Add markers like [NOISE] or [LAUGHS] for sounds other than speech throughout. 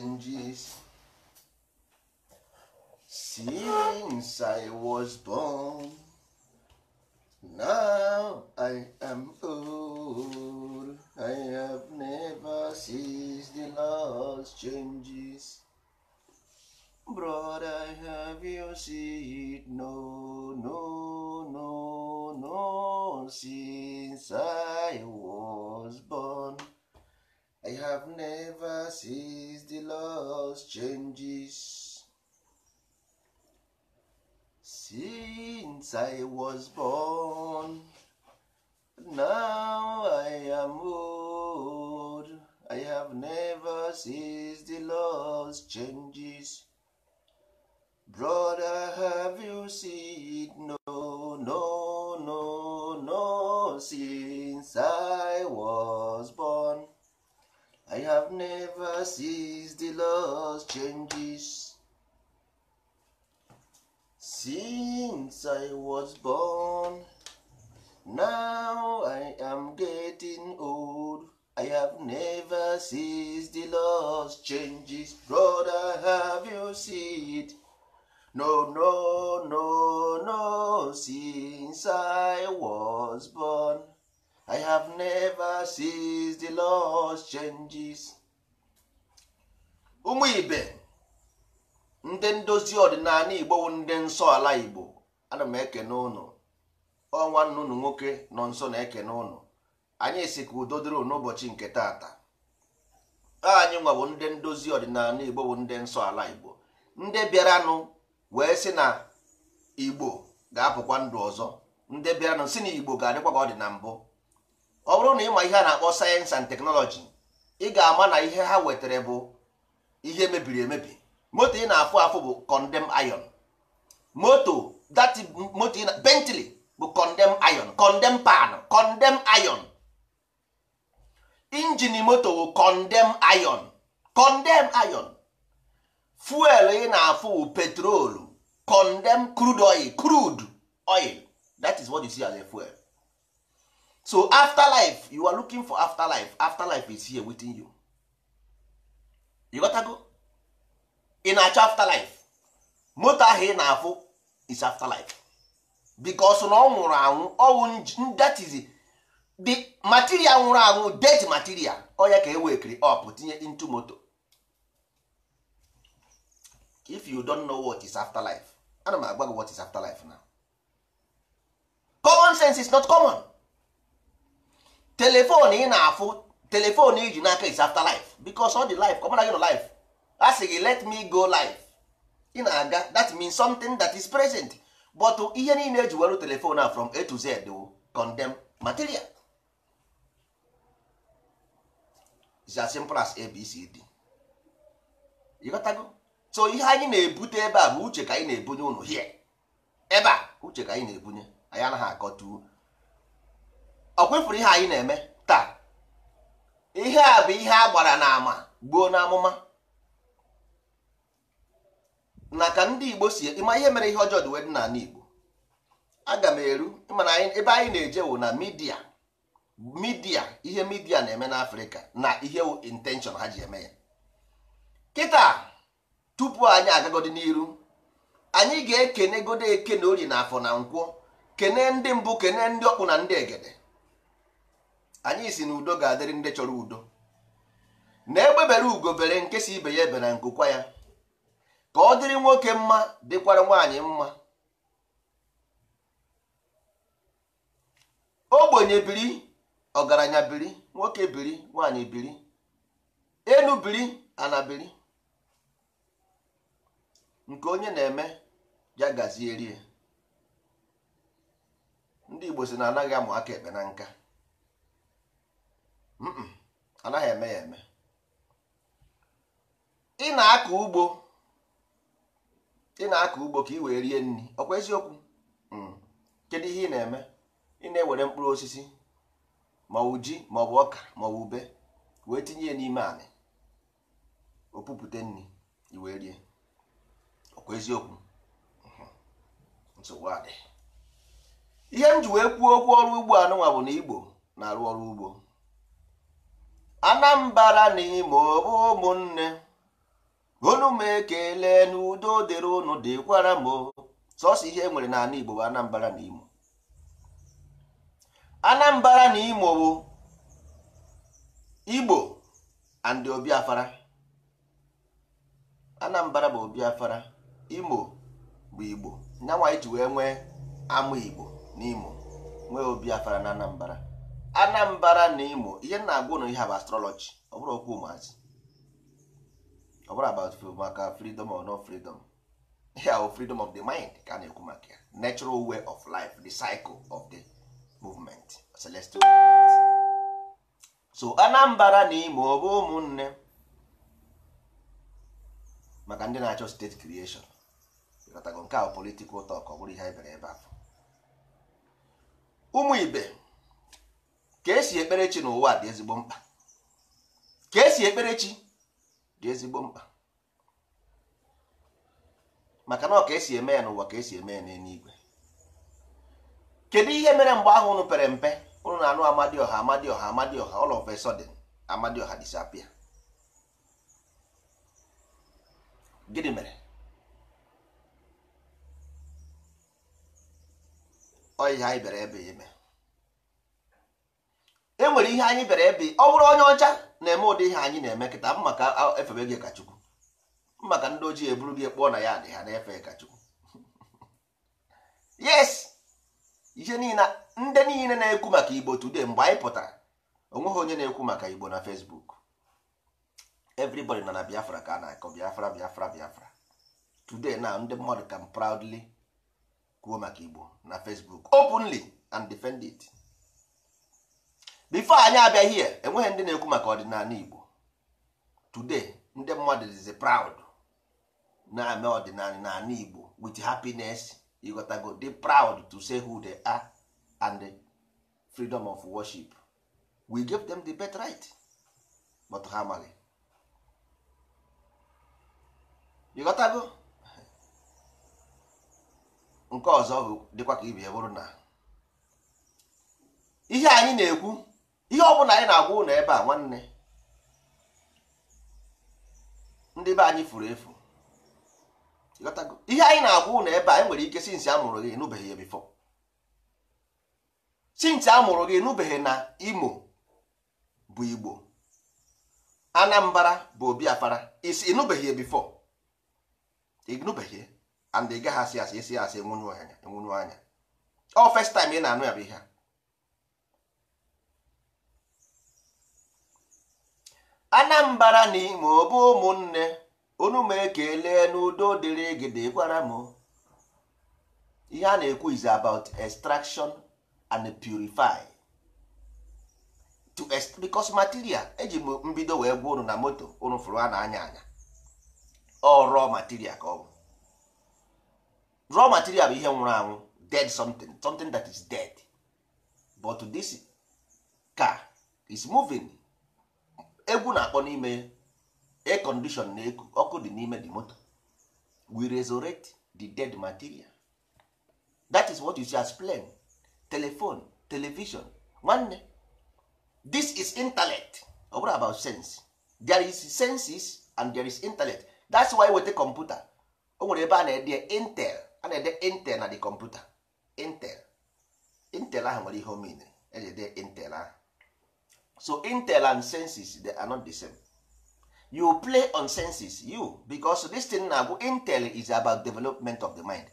changes. Since I was born, now I am old. I have never seen the last changes. Brother, have you seen it? No, no, no, no, since I was born. I have never seen the laws changes since I was born. Now I am old. I have never seen the laws changes. Brother, have you seen? No, no, no, no, since I was I have never seen the Lord's changes since I was born. Now I am getting old. I have never seen the Lord's changes. Brother, have you seen it? No, no, no, no, since I was born. I have never seen the Lord's changes. ụmụ ibe ndị ndozi ọdịnala Igbo ndị nsọ ala Igbo ana m ekene ụnụ ọnwa nnụnụ nwoke nọ nso na-ekene ụnụ anyị si ka udo dịrị n'ụbọchị nke taata anyị nwabụ ndị ndozi ọdịnala Igbo bụ ndị nsọ ala Igbo ndị bịaranụ wee sị na Igbo ga-apụkwa ndụ ọzọ ndị bịaranụ si na Igbo ga-adịkwa ka ọ dị na mbụ ọ bụrụ na ịma ihe a na-akpọ sayensị and teknọlọji ị ga-ama na ihe ha wetara bụ ihe mebiri emebi moto ị na-afụ afụ bụ condemn iron moto dati moto ị na bentley bụ condemn iron condemn pan condemn iron injin moto bụ condemn iron condemn iron fuel ị na-afụ bụ petrolu condemn crude oil crude oil that is what you see as a fuel so after life you are looking for after after life is here within you you gotago ị na-achọ afterlife moto ahụ ị na-afụ is life because na ọ nwụrụ anwụ ọnwụ that is the material nwụrụ anwụ dead material onye ka e wekiri up tinye into moto if you don't know what is after afterlife ana m agwa gị what is after life now common sense is not common telefon ị na-afụ telefon iji n'aka is after life because all the life kọmara gị nọ life a gị let me go life ị na-aga that means something that is present but ihe niile eji were telefon a from a to z condemn material is as simple as abcd ịghọtago so ihe anyị na-ebute ebe a bụ uche ka anyị na-ebunye unu hie ebe uche ka anyị na-ebunye anyị anaghị akọ akọtu ọ kwefuru ihe anyị na-eme taa ihe a bụ ihe a gbara n'ama gbuo n'amụma na ka ndị igbo si ịma ihe mere ihe ọjọọ dị wee dị n'ala igbo aga m eru mana ebe anyị na-eje wụ na midia midia ihe midia na-eme afrịka na ihe intenshọn ha ji eme ya kịta tupu anyị agagodi n'iru anyị ga-ekene godo eke na ori na afọ na nkwọ kene ndị mbụ kene ndị ọkpụ na ndị egede anyị si na udo ga-adịrị ndị chọrọ udo na-egbebere ugo bere nke ibe ya ebe na nkụkwa ya ka ọ dịrị nwoke mma dịkwara nwaanyị mma ogbenye biri ọgaranya biri nwoke biri nwaanyị biri enu biri ana biri nke onye na-eme ya rie ndị Igbo si na anaghị amụ aka ekpe na nka anaghị eme ya eme ị na-akọ ugbo ị na-akọ ugbo ka ị wee rie nri ọkwa eziokwu mm. kedu ihe ị na-eme ị na-ewere mkpụrụ osisi maọbụ ji maọbụ ọka maọbụ ube wee tinye ya n'ime anị opupụte nri i wee rie ọkwa eziokwu mm-hmm. nsogbu adị ihe m ji wee kwuo okwu ọrụ ugbo anụnwa bụ na Igbo na-arụ ọrụ ugbo anambra na imo ụmụnne unu m ekele n'udo dịrị ụnụ dịkwara m sọsọ ihe nwere n'ala igbo bụ anambra na imo anambra na imo bụ igbo and obiafara anambra bụ obiafara imo bụ igbo nyanwa iji e wee nwee ama igbo na imo nwee obiafara na anambra anambra na imo ihe na-agwa na ihe bụ astrọlọji ọ bụrụ okwu ụmụazị ọ bụrụ about maka freedom or no freedom ihe ahụ freedom of the mind ka a na-ekwu maka ya natural way of life the cycle of the movement celestial movement so anambra na imo ọ bụ ụmụnne maka ndị na-achọ steeti creation ịkọtago nke ahụ politikal tọk ọ bụrụ ihe anyị bere ebe ahụ ụmụ ibe ka esi ekpere chi n'ụwa dị ezigbo mkpa ka esi ekpere chi dị ezigbo mkpa maka na ọ ka esi eme ya n'ụwa ka esi eme ya igwe. kedu ihe mere mgbe ahụ unu pere mpe unu na-anụ amadioha amadioha amadioha ọha of ọha sudden amadioha disappear gịnị mere ọyịa anyị bịara ebe ya eme enwere ihe anyị bịara ebe ọ bụrụ onye ọcha na-eme ụdị ihe anyị na-eme m maka efebe gị kachukwu Chukwu maka ndị ojii eburu gị kpọọ na ya dị ha na-efe kachukwu Chukwu [LAUGHS] yes ihe niile ndị niile na-ekwu maka Igbo today mgbe anyị pụtara onweghị onye na-ekwu maka Igbo na Facebook everybody nọ na Biafra ka a na-akọ Biafra Biafra Biafra today na ndị mmadụ can proudly kwuo maka Igbo na Facebook openly and defend it. bifo anyị abịa here enweghị ndị na-ekwu maka ọdịnala Igbo today ndị mmadụ dịzi proud na-eme ọdịnala n'ala Igbo with happiness ịghọtago dị proud to say who they are and the freedom of worship we give them the best right but ha amaghị ịghọtago nke ọzọ dịkwa ka ibe bụrụ na ihe anyị na-ekwu ihe ọ bụla anyị na-agwa ụlọ ebe a nwanne ndị be anyị furu efu ihe anyị na-agwa ụlọ ebe a enwere ike sinsi a mụrụ gị enụbeghị ya bifọ sinsi a mụrụ gị enụbeghị na Imo bụ Igbo Anambara bụ Obiafara isi enụbeghị ya bifọ ịnụbeghị and ị gaghị asị asị esi asị enwunye anya ọ first time ị na-anụ ya bụ ihe a anambra na ma ọ bụ ụmụnne unu ma ekele n'udo dịrị gị dịkwara m ihe a na-ekwu is about extraction and purify to because material eji m mbido wee gwa unu na moto unu fụrụ a na-anya anya ọ raw material ka ọ bụ raw material bụ ihe nwụrụ anwụ dead something something that is dead but this car is moving egwu na-akpọ n'ime ya condition na eku ọkụ dị n'ime the moto we resurrect the dead material that is what you see as plane telephone television nwanne this is intellect ọ bụrụ about sense there is senses and there is intellect that's why weta kọmputa o nwere ebe a na-ede intel a na-ede intel na the kọmputa intel intel ahụ nwere ihe omena mean eji ede intel ahụ so intel and senses they are not the same you play on senses you because this thing na-abụ intel is about development of the mind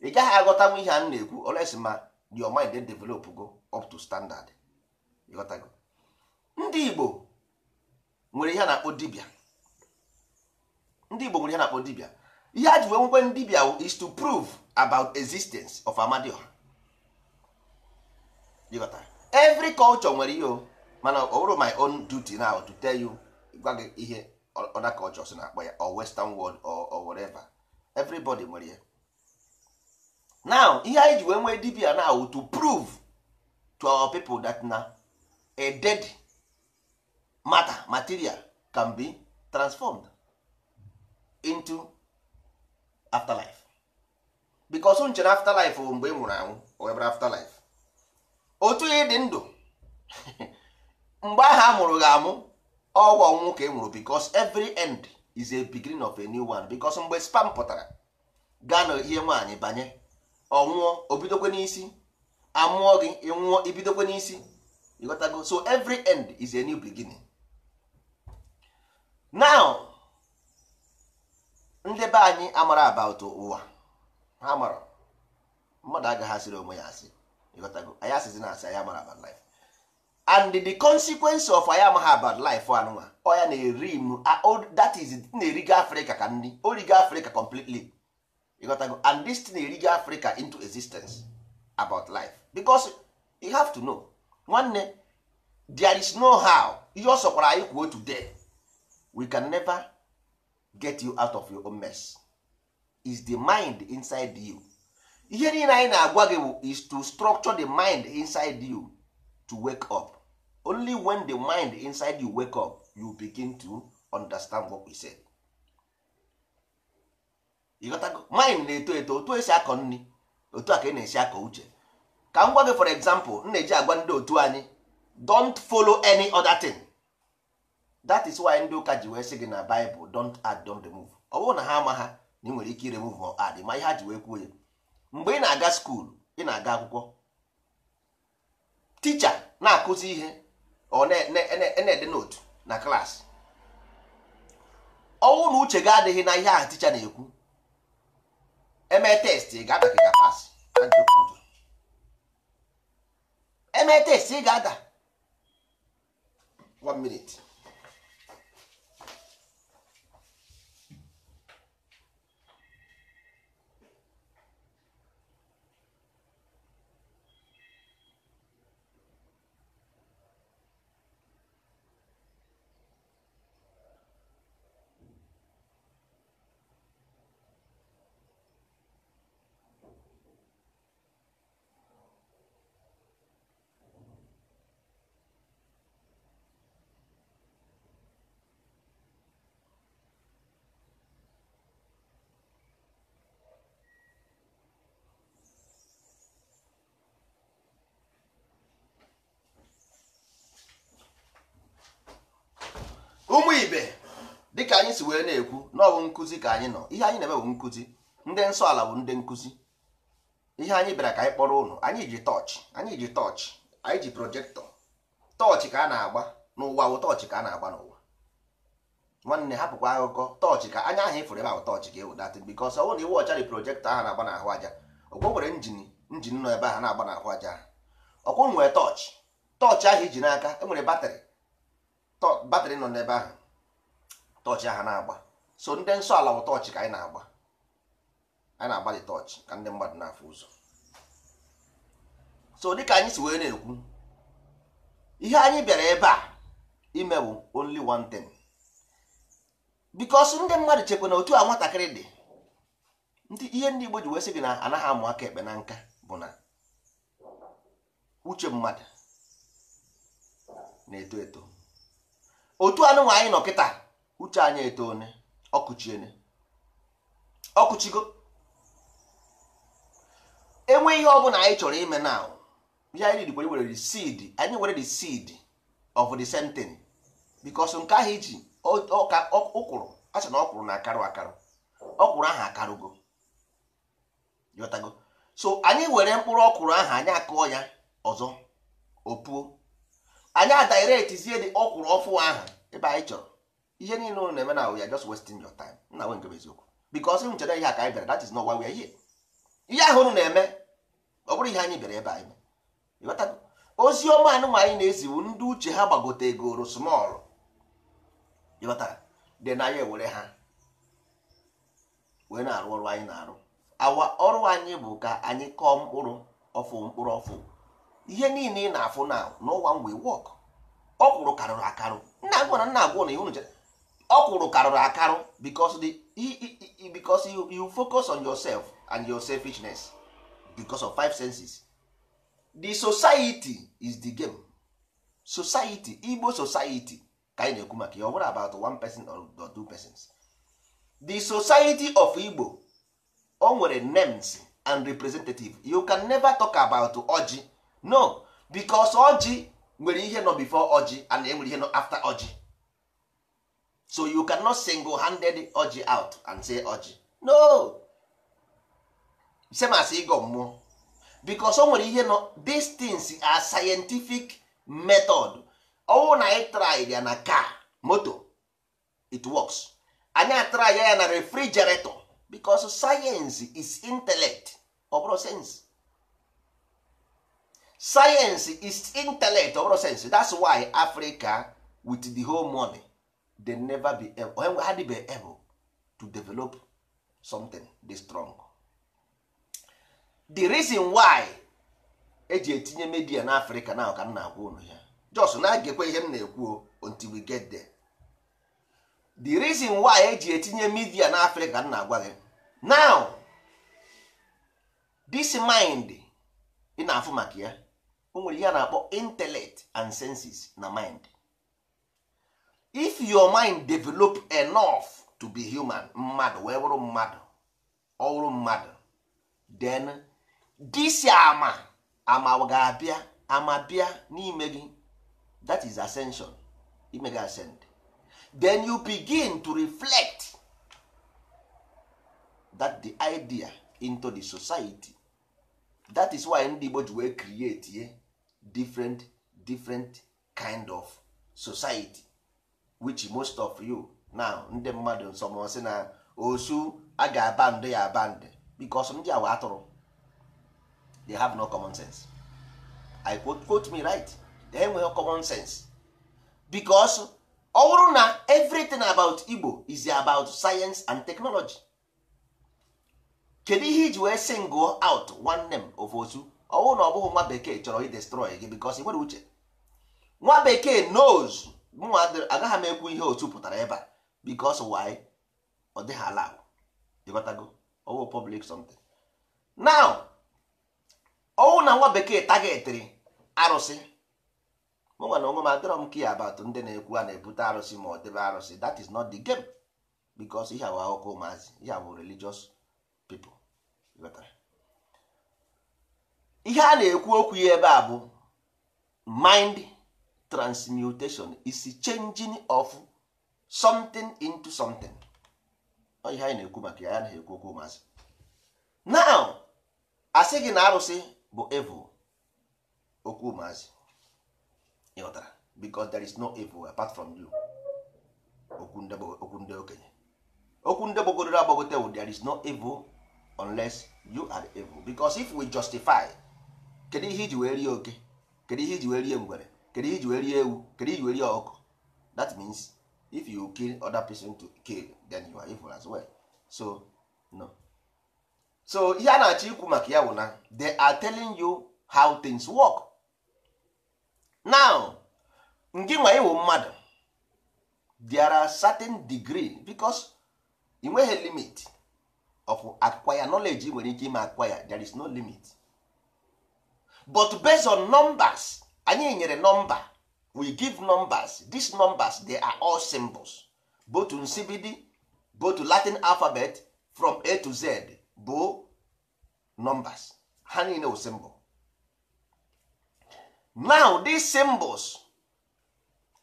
ị gaghị aghọtanwu ihe a na-ekwu oles ma your mind dey develop go up to standard ịghọtago ndị Igbo nwere ihe na-akpọ dibia ndị Igbo nwere ihe na-akpọ dibia ihe a ji wee nwekwe dibia is to prove about existence of Amadioha every culture nwere ihe o mana o bụrụ my own duty now to tell you gwa gị ihe other cultures na-akpọ ya or western world or, or whatever everybody nwere ya now ihe anyị ji wee nwee dibia now to prove to our people that na a dead matter material can be transformed into afterlife because nchere afterlife bụ mgbe ị nwụrụ anwụ or afterlife otu ihe dị ndụ [LAUGHS] mgbe ahụ a mụrụ gị amụ ọgwụ ọnwụnwụ ka e mụrụ bikos every end is a beginning of a new one bikos mgbe spam pụtara gaa na ihe nwaanyị banye ọnwụọ obidokwe n'isi amụọ gị ịnwụọ ibidokwe n'isi ịghọtago so every end is a new beginning now ndị be anyị amara about ụwa ha mara mmadụ agaghị asịrị onwe ya asị ịghọtago anyị asịzi na asị anyị amara about life and the consequence of I am ha bad life anụnwa ọya na-eri m that is na-erigo Africa ka nri origo Africa completely ịghọtago and this na-erigo Africa into existence about life because you have to know nwanne there is no how ihe ọ sọkwara anyị kwuo today we can never get you out of your own mess is the mind inside you ihe niile anyị na-agwa gị is to structure the mind inside you to wake up only when the mind inside you wake up you begin to understand what we said. go mind na-eto eto otu esi akọ nri otu a ka ị e na-esi akọ uche ka m gwa gị for example m na-eji agwa ndị otu anyị don't follow any other thing that is why ndị ụka ji wee sị gị na Bible don't add don't remove ọ bụrụ na ha ama ha na ị nwere ike iremove ma add ma ihe ha ji wee kwuo ya mgbe ị na-aga skuul ị na-aga akwụkwọ ticha na-akụzi ihe ọ na-ede notu na klaasị ọnwụ na uche ga adịghị na ihe ahụ ticha na-ekwu eme testị ga-ada ka ga eme testị ị ga-ada 1 minute ụmụ ibe dịka anyị si wee na-ekwu na ọ bụ nkụzi ka anyị nọ ihe anyị na-eme bụ nkụzi ndị nsọ ala bụ ndị nkụzi ihe anyị bịara ka anyị kpọrọ ụnụ anyị ji tọọchị anyị ji tọọchị anyị ji projektọ tọọchị ka a na-agba n'ụwa bụ tọọchị ka a na-agba n'ụwa nwanne hapụkwa akụkọ tọọchị ka anya ahụ ịfụrụ ebe ahụ tọọchị ka ewedata bikọs ọ bụrụ na iwe ọcha dị projektọ ahụ na-agba n'ahụ aja ọkwọ nwere njin njin nọ ebe ahụ na-agba n'ahụ aja ọkwọ nwere tọọchị tọọchị ahụ iji n'aka e batrị batrị nọ n'ebe ahụ tọọchị ahụ na-agba so ndị nsọ ala bụ tọọchị ka anyị na-agba anyị na agbalị tọọchị ka ndị mmadụ na-afụ ụzọ so dịka anyị si wee na-ekwu ihe anyị bịara ebe a ime bụ only one thing bikos ndị mmadụ chekwa na otu a nwatakịrị dị ndị ihe ndị Igbo ji wee sị gị na anaghị amụ aka ekpe na nka bụ na uche mmadụ na-eto eto otu anụnwa anyị nọ kịta uche anyị etone ọkụchiene ọkụchigo enwe ihe ọbụla anyị chọrọ ime na ya anyị dịkwa were seed anyị were the seed of the sentence because nke ahụ iji ụkwụrụ a na ọkwụrụ na akarụ akarụ ọkwụrụ ahụ akarụgo yọtago so anyị were mkpụrụ ọkwụrụ ahụ anyị akụọ ya ọzọ opuo anyị adiretizie dị ọkwụrụ ọfụ ahụ ebe anyị chọrọ ihe niile ụnụ na-eme na we are just wasting your time na nwe nke eziokwu because m chere ihe aka anyị bịara that is not why we ihe ahụ ụnụ na-eme ọ bụrụ ihe anyị bịara ebe anyị ozi ọma anụmanụ anyị na-eziwu ndị uche ha gbagote egoro smọlụ ịghọtara dị na ewere ha wee na-arụ ọrụ anyị na-arụ awa ọrụ anyị bụ ka anyị kọọ mkpụrụ ọfụ mkpụrụ ọfụ ihe niile ị na-afụ na n'ụwa mgbe wọk ọkwụrụ karụrụ akarụ nna gwara nna agwọ na ihe unu chere ọkwụrụ karụrụ akarụ because the you, you focus on yourself and your selfishness because of five senses the society is the game society igbo society ka anyị na-ekwu maka ya ọ about one person or two persons the society of igbo o nwere names and representative you can never talk about Oji. no because oji nwere ihe nọ before ọjị and enwere ihe nọ after oji so you cannot single handed oji out and say oji no as ịgọ mmụọ because o nwere ihe nọ these things are scientific method ọwụ na anyị try ya na car moto it works anyị atry ya na refrigerator because science is intellect ọ bụrụ sense science is intellect ọbụrụ sense that's why africa with the whole money they never be able, had be able to develop something this strong the reason why eji etinye media na africa na ka m na-agwa unu ya jos na-agekwa ihe m na-ekwu until we get there the reason why eji etinye media na africa m na-agwa gị now this mind ị na-afụ maka ya o nwere ihe a na-akpọ intellect and senses na mind if your mind develop enough to be human mmadụ wee bụrụ mmadụ ọ bụrụ mmadụ then this ama ama ga-abịa ama bịa n'ime gị that is ascension ime ascend then you begin to reflect that the idea into the society that is why ndị Igbo ji wee create ye different different kind of society which most of you now ndị mmadụ sị na osu a ga-aba ya aba ndị because ndị awa atụrụ they have no common sense i quote, quote me right they no common sense because ọ bụrụ na everything about Igbo is about science and technology kedu ihe iji wee sing out one name of osu ọwụ na ọ bụghị nwa bekee chọrọ idestrọị gị bikos nwere uche nwa bekee knows mụnwa agaghị m ekwu ihe otu pụtara ebe a bikos why ọ dịghị ala ịghọtago ọwụ public something now ọwụ na nwa bekee tagetịrị arụsị mụnwa na onwe m adịrọ m ka ya abatụ ndị na-ekwu a na-ebute arụsị ma ọ debe arụsị that is not the game bikos ihe awụ akụkọ ụmụazị ihe awụ religious people ihe a na-ekwu okwu ya ebe a bụ mind transmutation is changing of something into something ihe anyị na-ekwu maka ya na-ekwu okwu maazị now asị gị na arụsị bụ evil okwu maazị ịghọtara because there is no evil apart from you okwu ndị okenye okwu ndị gbogoro agbagote there is no evil unless you are evil because if we justify kedu ihe iji wee rie oke kedu ihe iji wee rie ngwere kedu ihe iji wee rie ewu kedu ihe iji wee rie ọkụ that means if you kill other person to kill then you are evil as well so no so ihe a na-achọ ikwu maka ya bụ na they are telling you how things work now ngị nwa iwu mmadụ there are certain degree because ị nweghị limit of acquire knowledge ị nwere ike ime acquire there is no limit but based on numbers anyị nyere number we give numbers these numbers they are all symbols both nsibidi both latin alphabet from a to z bụ numbers ha niile wụ symbol now these symbols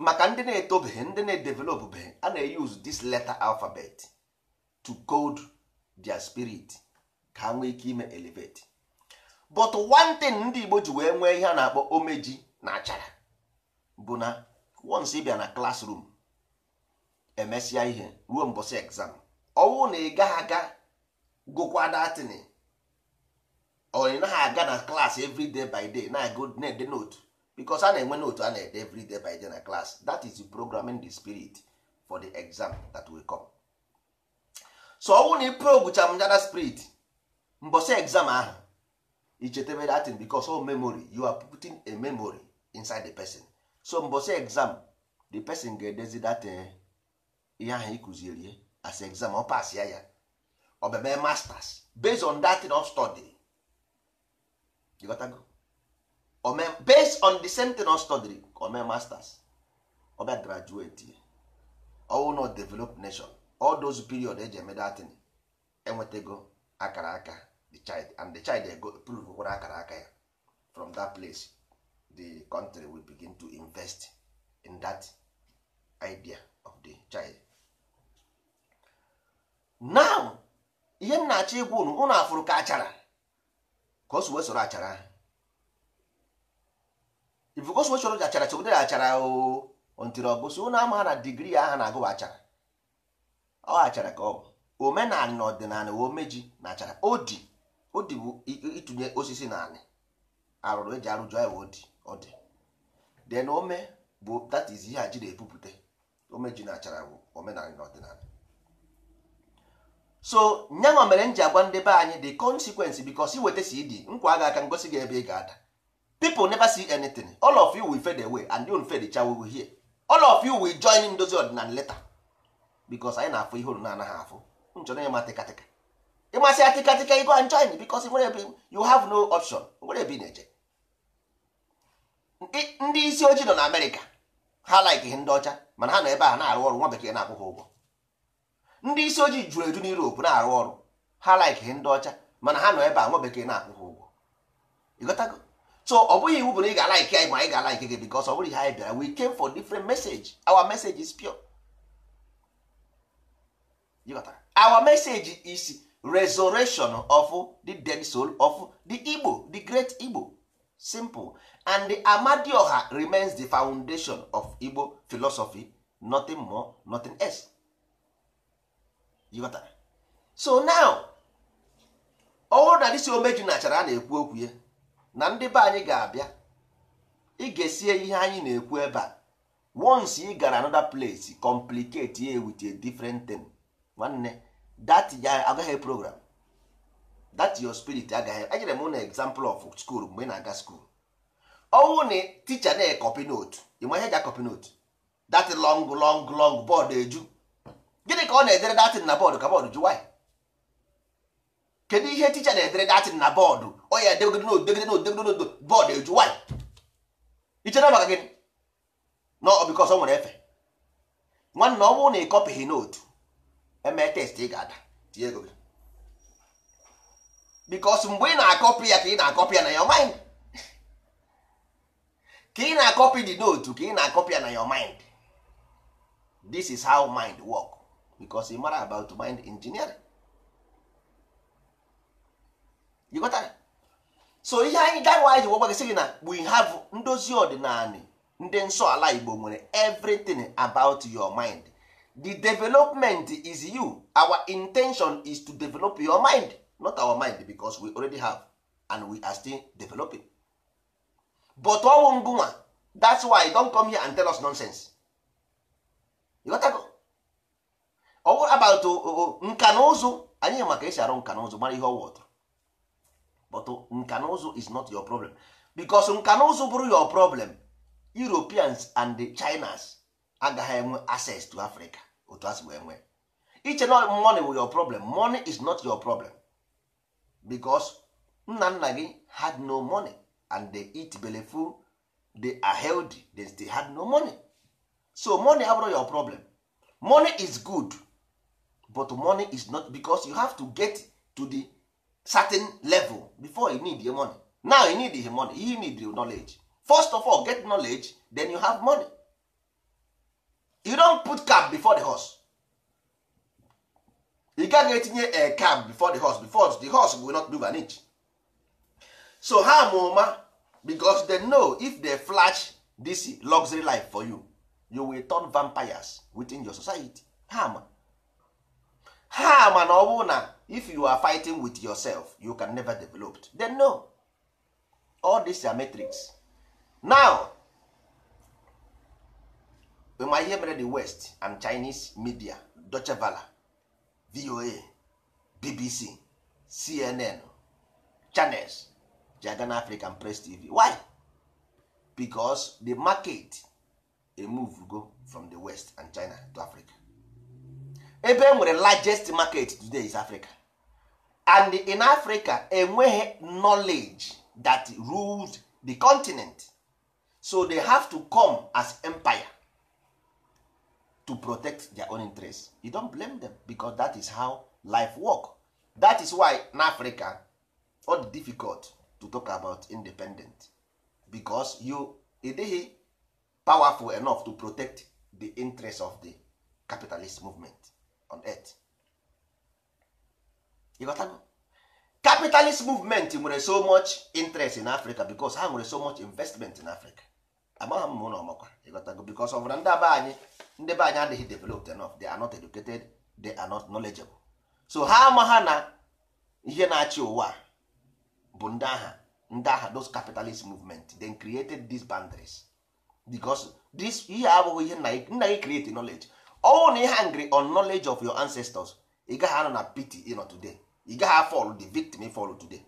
maka ndị na-etobeghị ndị na-edevelopbeghị a na-use this letter alphabet to code their spirit ka ha nwee ike ime elevate but one thing ndị Igbo ji wee nwee ihe a na-akpọ omeji na achara bụ na once ị bịa na classroom emesịa ihe ruo mbọsị exam ọwụ na ị gaghị aga gokwa datini or na naghị aga na class every day by day na-ede note because a na-enwe note a na-ede every day by day na class that is programming the spirit for the exam that will come so ọwụ na ị progucha m spirit mbọsị exam ahụ you chetebe that thing because all memory you are putting a memory inside the person so mbosi exam the person ga-edezi that eh, ihe ahụ ịkụziri eh, as exam ọ pass ya ya ọ masters based on that thing of study you got to go ome based on the same thing of study ome masters ọ bịa graduate eh. ọwụ na develop nation all those period eji eme datin thing enwetago akara aka the child and the child they go prove kwere akara aka ya from that place the country will begin to invest in that idea of the child now ihe m na-achọ ịgwa unu ụnụ afụrụ ka achara ka osuwe soro achara ifu ka osu soro achara chegidere achara o ntiri ọgụsi ụnụ ama na digrii aha na-agụwa achara ọ achara ka ọ bụ omenala na ọdịnala omeji na achara odi o dị bụ ịtụnye osisi na anị arụrụ eji arụjụ anyị ọ dị ọ dị den ome bụ that is ihe a ji na-ebupụta ome ji na achara bụ omenala na ọdịnala so nyanwa mere m ji agwa ndị be anyị the consequence because iweta dị nkwa aga aka ngosi gị ebe ị ga-ada people never si anything all of you wi fed away and you fade cha we will hear all of you wi join ndozi ọdịnala leta because anyị na-afụ ihe olu na-anaghị afụ nchọrọ ya ma tịkatịka ịmasị ya tịkatịka you go and join because nwere ebe you have no option nwere ebe na-eje ndị isi ojii nọ na amerịka ha like ihe ndị ọcha mana ha nọ ebe a na-arụ ọrụ nwa bekee na-akwụ ha ụgwọ ndị isi ojii juru eju n'Europe na-arụ ọrụ ha like ihe ndị ọcha mana ha nọ ebe a nwa bekee na-akwụ ha ụgwọ ịghọtago so ọ bụghị iwu bụ na ị ga-alaiki anyị ma anyị ga-alaiki gị because ọ bụrụ ihe anyị bịara we came for different message our message is pure our message is resurrection of the dead soul of the Igbo the great Igbo simple and the Amadioha remains the foundation of Igbo philosophy nothing more nothing else you got that? so now ọhụrụ na dịsi omeju nachara a na-ekwu okwu ya na ndị be anyị ga-abịa ị ga-esie ihe anyị na-ekwu ebe a once ị gara another place complicate ya with a different thing nwanne that ya agaghị program that your spirit agaghị enyere m na example of school mgbe ị na-aga school ọnwụ na ticha na-ekọpị note ịma ihe ji copy note that long long long board eju gịnị ka ọ na-edere datin na bọọdụ ka bọọdụ ju why kedu ihe ticha na-edere datin na bọọdụ ọ ya degide note degide note degide note bọọdụ eju why ichere maka gịnị no because ọ nwere efe nwanne ọ na ị note eme test ị ga-ada tinye ego bikos mgbe ị na-akọpị ya ka ị na-akọpị ya na your mind ka ị na-akọpị the note ka ị na-akọpị ya na your mind this is how mind work bicos ị mara about mind engineering you got so ihe anyị gawa ji gwagbagịsị gị na we have ndozi ọdịnala ndị nsọ ala igbo nwere everything about your mind the development is you our intention is to develop your mind not our mind because we already have and we are still developing but ọnwụ ngụnwa that's why don come here and tell us nonsense you got to go ọwụ about nka na ụzụ anyị maka esi arụ nka na ụzụ mara ihe ọwụ but nka na ụzụ is not your problem because nka na ụzụ bụrụ your problem Europeans and the Chinas agaghị enwe access to Africa otu asị wee enwe. iche na money bụ your problem money is not your problem because nna nna gị had no money and the eat belefu dey are healthy they still had no money so money abụrụ your problem money is good but money is not because you have to get to the certain level before you need your money now you need your money you need your knowledge first of all get knowledge then you have money you don put cap before the horse ị gaghị etinye a cap before the horse before the horse will not move an inch so ha oma ụma because they know if they flash this luxury life for you you will turn vampires within your society ha Harm ha ma na ọ bụrụ na if you are fighting with yourself you can never develop they know all these are metrics now ma ihe mere the west and chinese media Deutsche Welle voa bbc cnn channels ji aga na african press tv why because the market emove go from the west and china to africa ebe enwere nwere largest market today is africa and in africa enweghị knowledge that rules the continent so they have to come as empire to protect their own interest you don't blame them because that is how life work that is why in africa all difficult to talk about independent because you dey powerful enough to protect the interest of the capitalist movement on earth you got capitalist movement nwere so much interest in africa because ha nwere so much investment in africa amagha m ụlọ ọmakwa ịghọtago because of na ndị be anyị ndị be anyị adịghị developed enough they are not educated they are not knowledgeable so ha amagha na ihe na-achị ụwa bụ ndị agha ndị agha those capitalist movement then created these boundaries because this ihe abụghị ihe nna gị create knowledge ọnwụ na ihe hungry on knowledge of your ancestors ị gaghị anọ na pity ịnọ today ị gaghị fall the victim fall today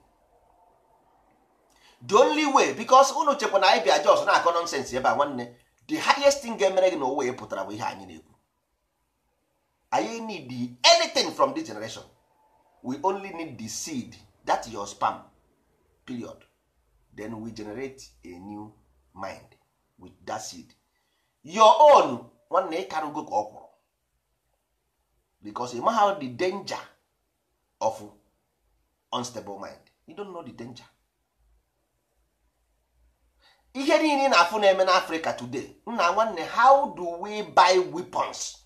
the only way because unu chekwa na anyị bịa jos na-akọ nọnsensị ebe a nwanne the highest thing ga-emere gị na owe pụtara bụ ihe anyị na-ekwu anyị need anything from this generation we only need the seed that your spam period then we generate a new mind with that seed your own nwanne ịkarụgo ka ọ kwụrụ because ịma how the danger of unstable mind you don't know the danger ihe niile na-afụ na-eme today nna nwanne how do we buy weapons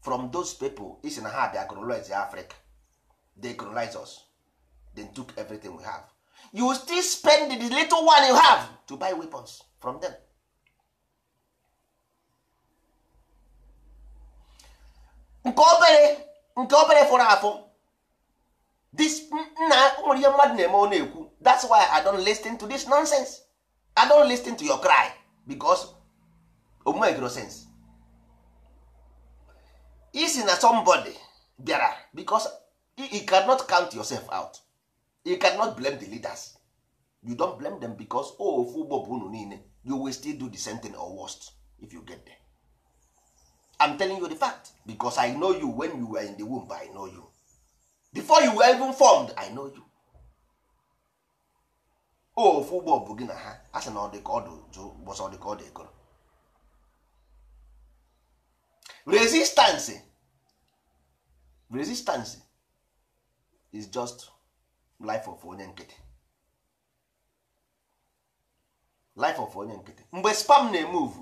from those people isi na ha bịa colonize africa they colonize us they took everything we have you still spend the little one you have to buy weapons from them nke obere nke obere fọrọ afọ this nna nwere ihe mmadụ na-eme ọ na-ekwu that's why i don't listen to this nonsense. i don't listen to your cry because omegro sense isi na somebody bịara because e cannot count yourself out e cannot blame the leaders you don't blame them because oh, ofu ugbo bụ unu niile you will still do the same thing or worst if you get there i'm telling you the fact because i know you when you were in the womb i know you before you were even formed i know you ofu ụgbọ bụ gị na ha a sị na ọ dị ka ọ dị bọsọ ọ dị ka ọ dị resistance resistance is just life of onye nkịtị life of onye nkịtị mgbe spam na-emove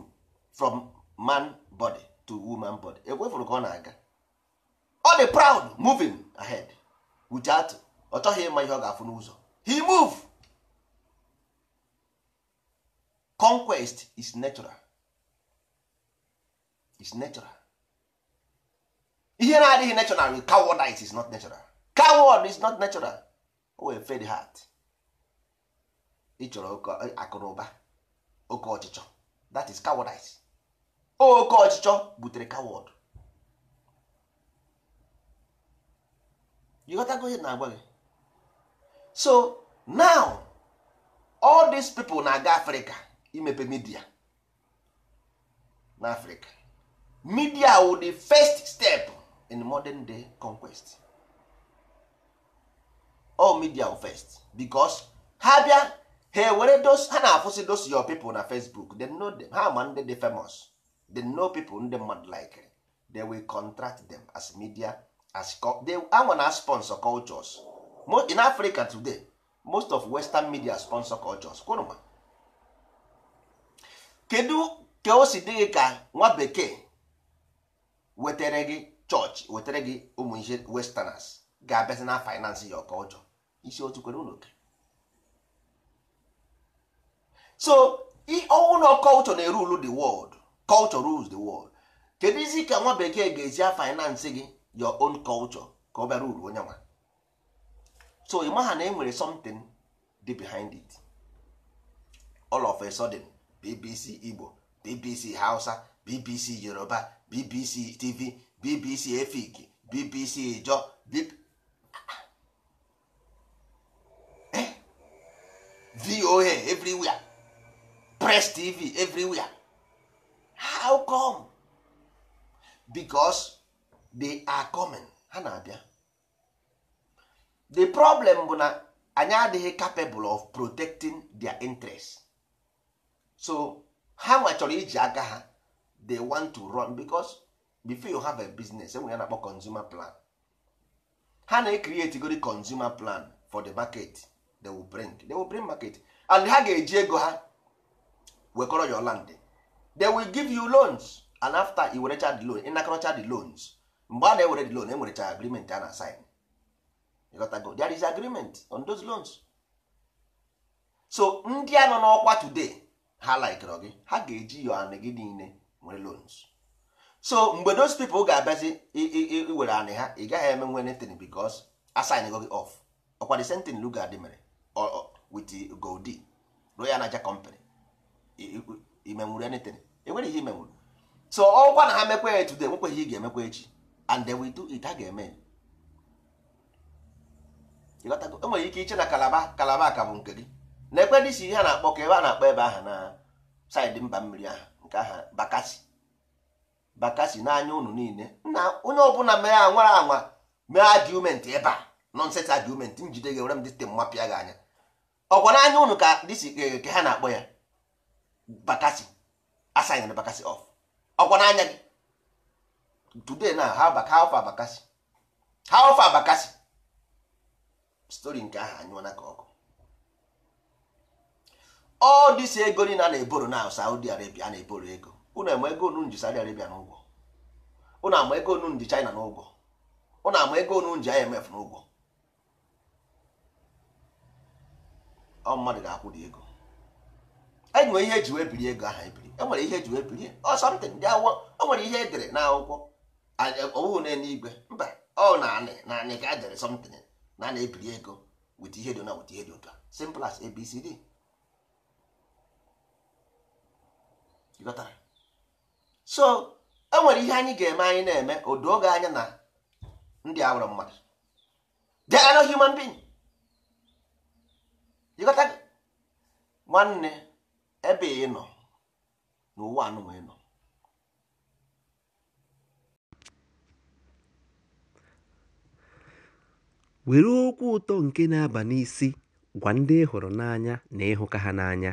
from man body to woman body ekwefuru ka ọ na-aga ọ dị proud moving ahead without ọ chọghị ịma ihe ọ ga-afụ n'ụzọ he move conquest is natural is natural ihe na-adịghị natural with cowardice is not natural coward is not natural o wee fed heart ịchọrọ akụnụba oke ọchịchọ that is cowardice oke ọchịchọ butere coward ịghọtago ihe na agba gị so now all these people na-aga Africa imepe midia n'africa afrịka midia wu the first step in modern day conquest all media wu first because ha bịa ha were dos ha na-afụsị dos your people na facebook they know them ha ma ndị dị famous dem know people ndị mmadụ like they will contract them as media as they anwa na sponsor cultures in africa today most of western media sponsor cultures kwụrụ ma kedu ka o si dị gị ka nwa bekee wetere gị chọọchị wetere gị ụmụ ihe westerners ga-abịazi na finance ya ọka ọjọọ isi otu kwere ụlọ oke so ọwụlọ culture na-eru ulu the world culture rules the world kedu izi ka nwa bekee ga-esi a finance gị your own culture ka ọ bịara uru onye nwa so ị ha na e nwere something dị behind it all of a sudden BBC Igbo BBC Hausa BBC Yoruba BBC TV BBC Efik BBC Ijo eh? VOA everywhere Press TV everywhere how come? Because they are coming ha na-abịa the problem bụ na anyị adịghị capable of protecting their interest. so ha nwa chọrọ iji aka ha they want to run because before you have a business say ya na-akpọ consumer plan ha na-ecreate gori consumer plan for the market they will bring they will bring market and ha ga-eji ego ha wekọrọ your land they will give you loans and after you werecha the loan ịnakọrọcha the loans mgbe a na-ewere the loan enwerecha agreement a na-asign go there is agreement on those loans so ndị a nọ n'ọkwa today ha laikere gị ha ga-eji yo anị gị niile nwere loans so mgbe those people ga-abịazi iwere anị ha ị gaghị eme nwe netin bikos asaingo gị off ọkwa the same thing luga dị mere with goldi royal naja company imenwuru anything enwere ihe imenwuru so ọkwa na ha mekwa ya today ihe ị ga-emekwa echi and then we do it ha ga-eme enwere ike iche na kalaba kalaba ka bụ nke gị na ekwe dị si ihe a na-akpọ ka ebe a na-akpọ ebe aha na saịdị mba mmiri ahụ nke aha bakasi bakasi n'anya ụnụ niile na onye ọbụla mere anwara anwa mee adiumenti ebe a nọnset adiumenti njide gị were m dịte mmapịa gị anya ọkwa n'anya unu ka dịsi e, ka ha na-akpọ ya bakasi asaịn bakasi of ọkwa n'anya gị today na ha baka ha ofe abakasi ha ofe abakasi stori nke ahụ anyụọ na ka ọkụ all this ego niile a na-eboro na Saudi Arabia a na-eboro ego unu ama ego unu ji Saudi Arabia n'ụgwọ unu ama ego unu ji China n'ụgwọ unu ama ego unu ji IMF n'ụgwọ ọ mmadụ ga-akwụ dị ego enwere ihe eji wee biri ego aha ebiri enwere ihe eji wee biri ọ something dị awọ o nwere ihe edere n'akwụkwọ ọwụụ e, na n'igwe mba ọ na-anị na ka edere sọmtin na na-ebiri ego wit ihe dị na wit ihe dị ụtọ simple as ABCD ịghọtara so e nwere ihe anyị ga-eme anyị na-eme odo doo anya na ndị a nwere mmadụ they human being ịghọta gị nwanne ebe ị nọ n'ụwa anụnwa ị nọ were okwu ụtọ nke na-aba n'isi gwa ndị ị hụrụ n'anya na ịhụka ha n'anya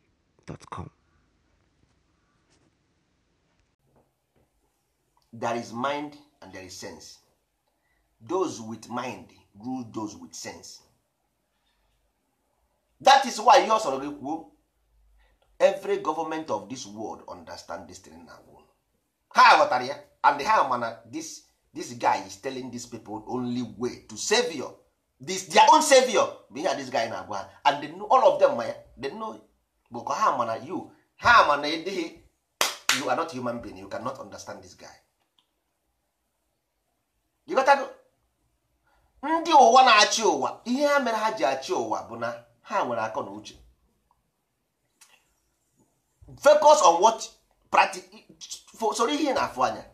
com There is mind and there is sense. Those with mind rule those with sense. That is why ihe ọsọrọ gị kwuo every government of this world understand this thing na wo ha ghọtara ya and ha mana this this guy is telling these people only way to savior dis this their own savior bụ ihe this guy na-agwa ha and they know all of them ma ya they know boko ka ha ma na you ha ma na ịdịghị you are not human being you cannot understand this guy ịghọtago ndị ụwa na-achị ụwa ihe ha mere ha ji achị ụwa bụ na ha nwere akọ na uche focus on what practical soro ihe na-afụ anya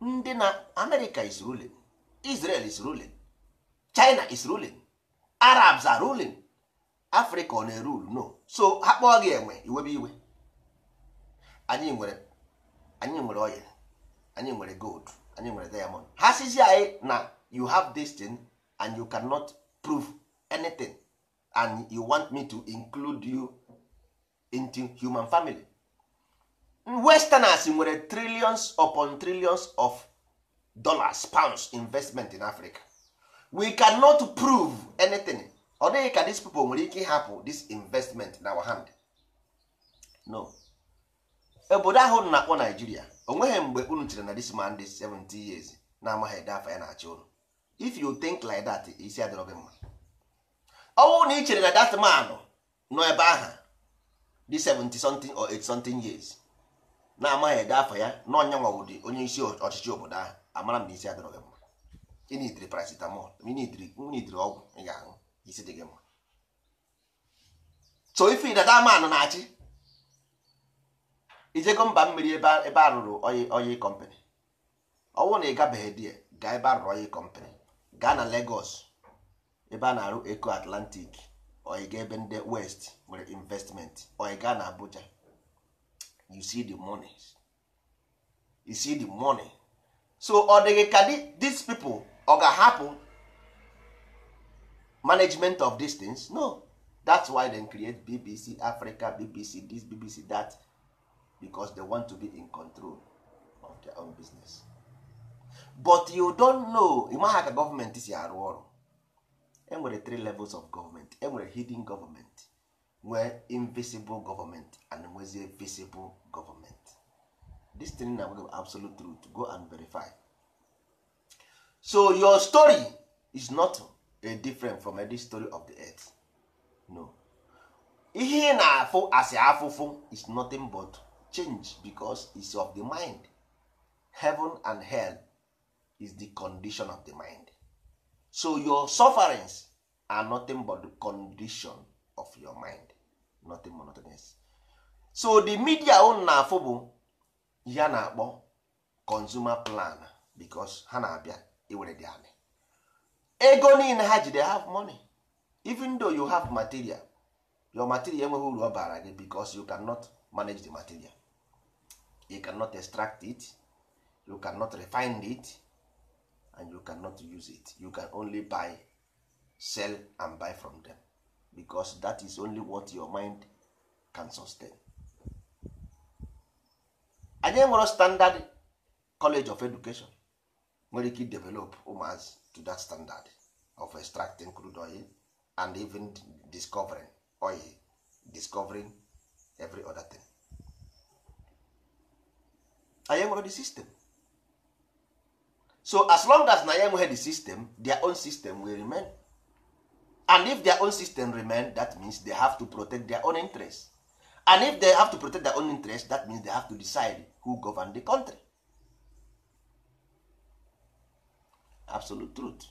ndị na America is ruling Israel is ruling China is ruling Arabs are ruling afrịka ọ na rule uru no so ha kpọọ gị enwe iwebe iwe anyị nwere anyị nwere oil anyị nwere gold anyị nwere diamond ha sizi anyị na you have this thing and you cannot prove anything and you want me to include you into human family westerners nwere trillions upon trillions of dollars pounds investment in africa we cannot prove anything ọ dịghị ka these people nwere ike ịhapụ this investment na our hand no obodo ahụ na-akpọ Nigeria onweghị mgbe unu chere na this man dis 70 years na-amaghị ede afọ ya na-achị ụlọ if you think like that isi adịrọ gị mma ọnwụ na ị chere na that man nọ ebe aha di 70 something or 80 something years na-amaghị ede afọ ya na ọnya nwawụdị onye isi ọchịchị obodo ahụ amara m na isi adịrọ gị mma ị nidiri paracetamol ị nidiri ọgwụ ị ga-aṅụ isi dị gị mma so ife dada man na-achị ijego mba mmiri ebe a rụrụ oyi kọmpanị ọ na ị gabeghị di gaa ebe a rụrụ oyi kọmpanị gaa na Lagos ebe a na-arụ Eco Atlantic oyi ga ebe ndị West nwere investment oyi gaa na Abuja you see the money you see the money so ọ dịghị ka these people ọ ga-ahapụ management of these things no that's why they create bbc africa bbc this bbc that because they want to be in control of their own business but you don't know ịmaha ka gọọmenti si arụ ọrụ enwere three levels of government enwere hidden government nwee invisible government and nwezie visible government this thing na absolute truth go and verify so your story is not. dey different from any story of the earth no ihe ị na-afụ asị afụfụ is nothing but change because is of the mind heaven and hell is the condition of the mind so your sufferings are nothing but the condition of your mind nothing more nothing else so the media unu na-afụ bụ ya na-akpọ consumer plan because ha na-abịa iwere dị anị ego niile ha jide they have money even though you have material your material enweghị uru ọ bara gị because you cannot manage the material you cannot extract it you cannot refine it and you cannot use it you can only buy sell and buy from them because that is only what your mind can sustain. anyị nwere standard college of education nwere ike develop ụmụazị to that standard of extracting crude oil and even discovering oil discovering every other thing anyị enwere the system so as long as na ya enweghị the system their own system will remain and if their own system remain that means they have to protect their own interest and if they have to protect their own interest that means they have to decide who govern the country absolute truth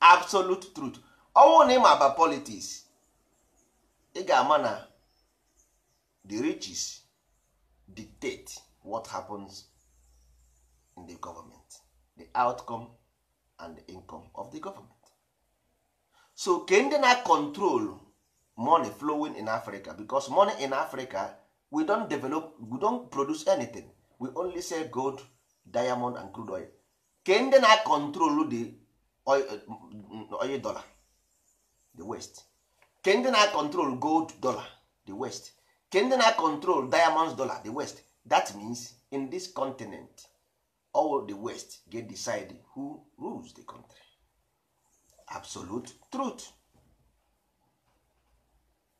absolute truth ọnwụ na ịma aba politics ị ga-ama na the riches dictate what happens in the government the outcome and the income of the government so ke ndị na-control money flowing in africa because money in africa we don develop we don produce anything we only sell gold diamond and crude oil ke ndị na-akọntrolu the mm, oil dollar the west ke ndị na-akọntrol gold dollar the west ke ndị na-akọntrol diamonds dollar the west that means in this continent all the west get decide who rules the country absolute truth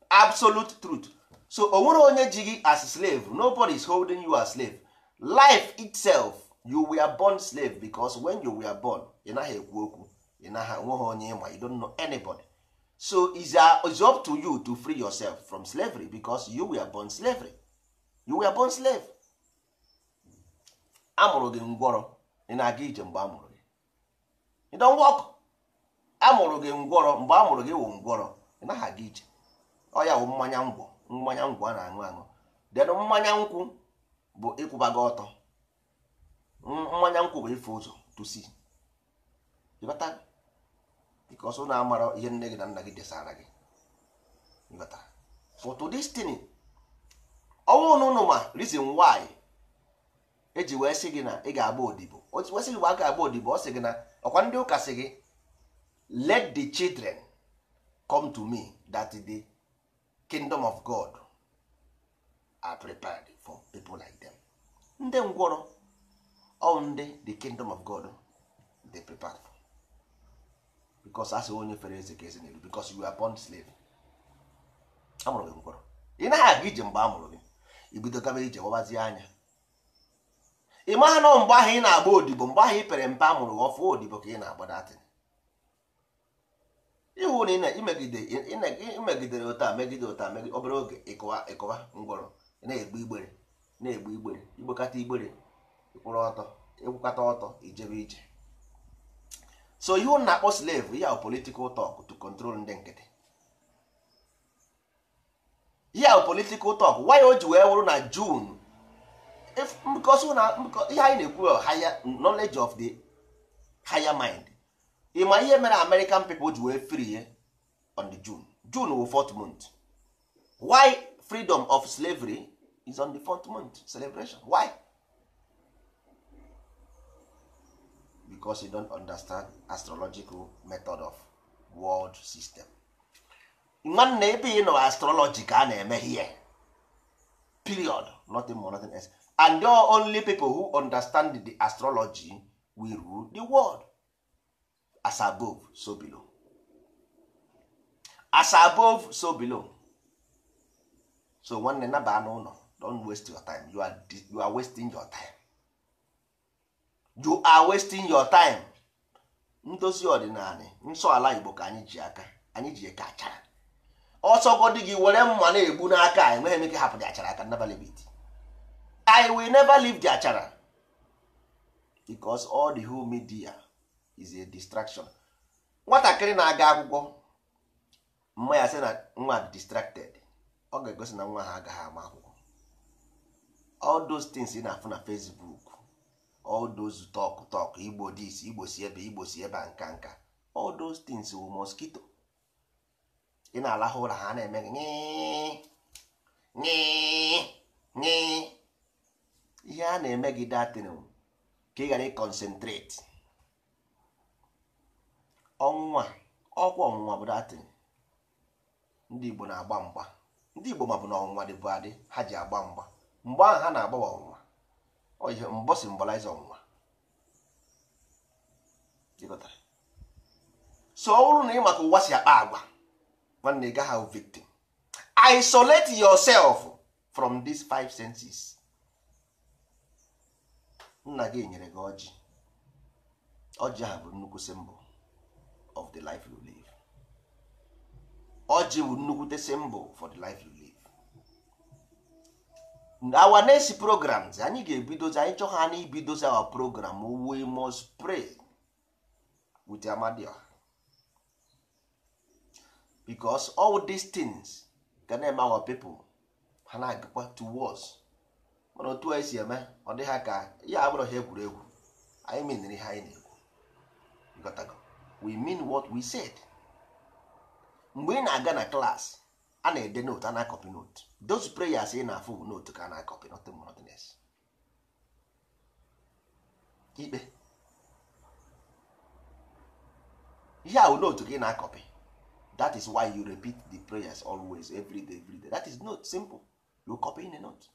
absolute truth so o nwere onye ji gị as slave nobody is holding you as slave life itself you were born slave because when you were born ị naghị ekwu okwu ị naghị nweghị onye ịma you don't know anybody so uh, it's up to you to free yourself from slavery because you were born slavery you were born slave amụrụ gị ngwọrọ ị na-aga ije mgbe amụrụ gị you don't walk amụrụ gị ngwọrọ mgbe amụrụ gị wụ ngwọrọ ị naghị aga ije ọ ya wụ mmanya ngwọ mmanya ngwọ a na-aṅụ aṅụ then mmanya nkwụ bụ ịkwụba gị ọtọ mmanya nkwụ bụ ife ụzọ tusi ịbata dịka ọsọ na-amara ihe nne gị na nna gị desara gị ịbata foto destiny ọnwụ na ụnụ ma reason why eji wee sị gị na ị ga-agba odibo wesị gị gba aka agba odibo ọ sị gị na ọkwa ndị ụka sị gị let the children come to me that the kingdom of God are prepared for people like them ndị ngwọrọ onde the kingdom of god they prepare because asị onye fere eze ka eze n'elu because you are born slave amụrụ gị mkpọrọ ị naghị aga ije mgbe amụrụ gị ibido gaba ije gbabazie anya ị maha nọ mgbe ahụ ị na-agba odibo mgbe ahụ ị pere mpe amụrụ gị ọfụ odibo ka ị na-agba datị. iwu na imegidere ụta megide ụta megide obere oge ịkụwa ịkụwa ngwọrọ na-egbu igbere na-egbu igbere igbokata igbere ịkwụrụ ọtọ ịkwụkọta ọtọ ijebe ije so ihe ụnụ na-akpọ slave ya politikal tok to control ndị nkịtị ya politikal tok why o ji wee wụrụ na jun ihe anyị na-ekwu uh, higher knowledge of the higher mind ịma ihe mere American people ji wee free ye on the June June wụ fourth month why freedom of slavery is on the fourth month celebration why? because you don't understand astrological method of world system nwanne ebe ị nọ astrology ka a na-eme here. period nothing more nothing else and the only people who understand the astrology will rule the world as above so below as above so below so nwanne naba n'ụlọ don't waste your time you are, you are wasting your time you are wasting your time ndozi ọdịnala nsọ ala igbo ka anyị ji aka anyị ji eke achara ọsọgodi gị were mma na-egbu n'aka enweghị m ike hapụ dị achara aka never leave it i will never leave the achara because all the whole media is a distraction nwatakịrị na-aga akwụkwọ mma ya sị na nwa be distracted ọ ga-egosi na nwa ha agaghị ama akwụkwọ all those things ị na-afụ na Facebook all those talk talk igbo this igbo si ebe igbo si ebe a nka nka all those things wu mosquito ị na-alahụ ụra ha na-eme gị ihe a na-eme gị datin ka ị ghara ịkọnsentreti ọnwụnwa ọkwa ọnwụnwa bụ datin ndị igbo na-agba mgba ndị igbo ma bụ na ọnwụnwa dịbụ adị ha ji agba mgba mgbe ahụ ha na agbawa ọnwụnwa ọ ihe mbọ simbolize ọnwụnwa so ọ na ị maka ụwa si akpa agwa nwanne gaghị ahụ victim isolate yourself from these five senses nna gị nyere gị ọjị ọjị ahụ bụ nnukwu symbol of the life you live ọjị bụ nnukwute symbol for the life you live. our next programs anyị ga-ebidozi anyị chọọ anyị na ibidozi our program we must pray with Amadioha because all these things ga na-eme our people ha na-agakwa to wars mana otu anyị si eme ọ dị ha ka ya abụrụ ha egwuregwu anyị meniri ha anyị na-ekwu we mean what we said mgbe ị na-aga na klaasị a na-ede note ana na note those prayers ị na-afụ bụ note ka a na copy not more nothing ikpe ihe ahụ note gị na copy that is why you repeat the prayers always every day every day that is note simple you copy in a note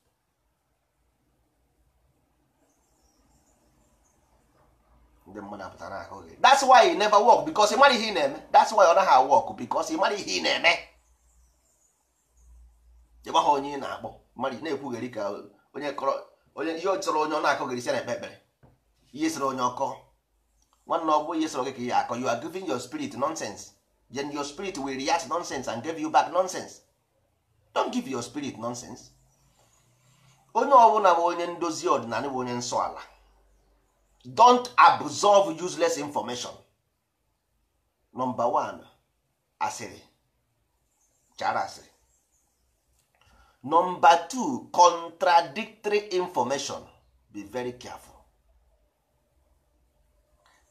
ndị mmadụ apụtara ahụ gị that's why e never work because ị mara ihe ị na-eme that's why ọ naghị work because ị mara ihe ị na-eme jegba onye ị na-akpọ mmadụ na-ekwugheri ka onye kọrọ onye ihe chọrọ onye ọ na-akọgheri si na-ekpe ekpere ihe sịrị onye ọkọ nwanne ọ ihe sịrọ ka ihe akọ you are giving your spirit nonsense then your spirit will react nonsense and give you back nonsense don't give your spirit nonsense onye ọbụla bụ onye ndozi ọdịnala bụ onye nsọ ala don't useless information nọmba chara asịrị Nọmba two contradictory information be very careful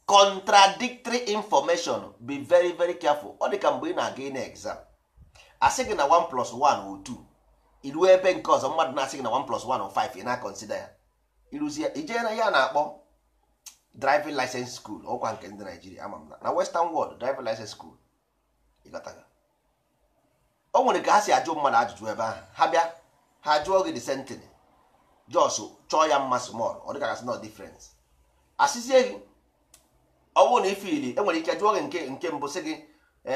contradictory information be very very careful ọ dịka mgbe ị na-aga exam asị gị na 1 plus 1 o 2 iruo ebe nke ọzọ mmadụ na-asị gị na 1 plus 1 o 5 ị na-akọnsida ya iruzie ijee na ya na-akpọ driving license school ọkwa nke ndị Naijiria ama m na na Western world driving license school ịgọtaga o nwere ka ha si ajụ mmadụ ajụjụ ebe ahụ ha bịa ha jụọ gị de sentence jos chọọ ya mma small ọ dịka gasị nọ difference asịzie gị ọ bụrụ na ifili enwere ike jụọ gị nke nke mbụ sị gị e,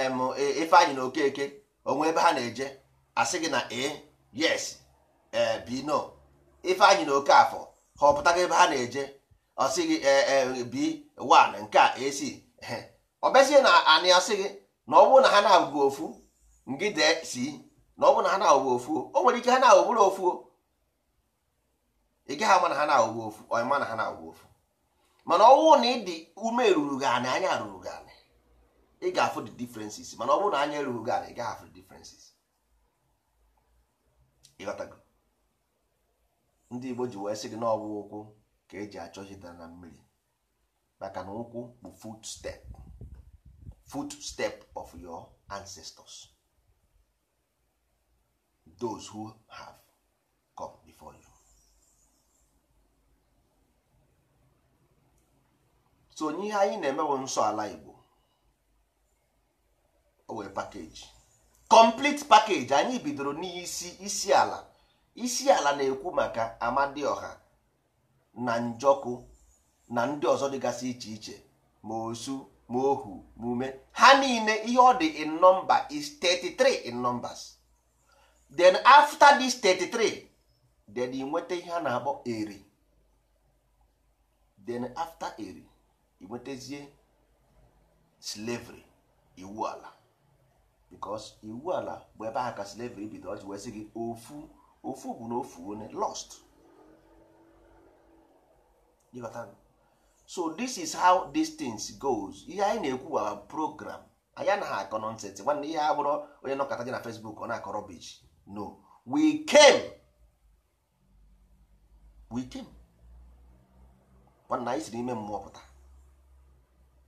ife anyị na okeke onwe ebe ha na-eje asị gị na a e, yes e, b no ife anyị na oke afọ ha ebe ha na-eje ọ sị gị b nke a ac ọ bịazie na anị asị gị na ọ bụrụ na ha na-abụghị ofu ngị dee si na ọ bụ na ha na-awụwe ofuo o nwere ike ha na-awụbụrụ ofuo ị gaghị ama na ha na-awụwe ofu ọịma na ha na-awụwe ofu mana ọwụ na ịdị ume ruru gị anị anya ruru gị anị ị ga-afụ the differences mana ọ bụrụ na anya ruru gị anị ị gaghị afụ the differences ịghọtago ndị Igbo ji wee sị gị na ọwụ ụkwụ ka eji achọ chịtara na mmiri maka na ụkwụ bụ fut step fut step of your ancestors those who have come before you so onye ihe anyị na emewo nsọ ala Igbo o wee pakeji complete package anyị bidoro n'isi isi ala isi ala na-ekwu maka Amadioha na Njoku na ndị ọzọ dịgasị iche iche ma osu ma ohu ma ume ha niile ihe ọ dị in nọmba is 33 in numbers then after this 33 then ị nweta ihe a na-akpọ eri then after eri ị nwetazie slavery iwu ala because iwu ala bụ ebe ahụ ka slavery bido ọ ji wee gị ofu ofu bụ na ofu one lost so this is how these things goes ihe anyị na-ekwu wa program anyị na akọ nọnsensị nwanne ihe a bụrụ onye nọkọta gị na Facebook ọ na akọrọ rubbish no we came we came nwanna anyị si n'ime mmụọ pụta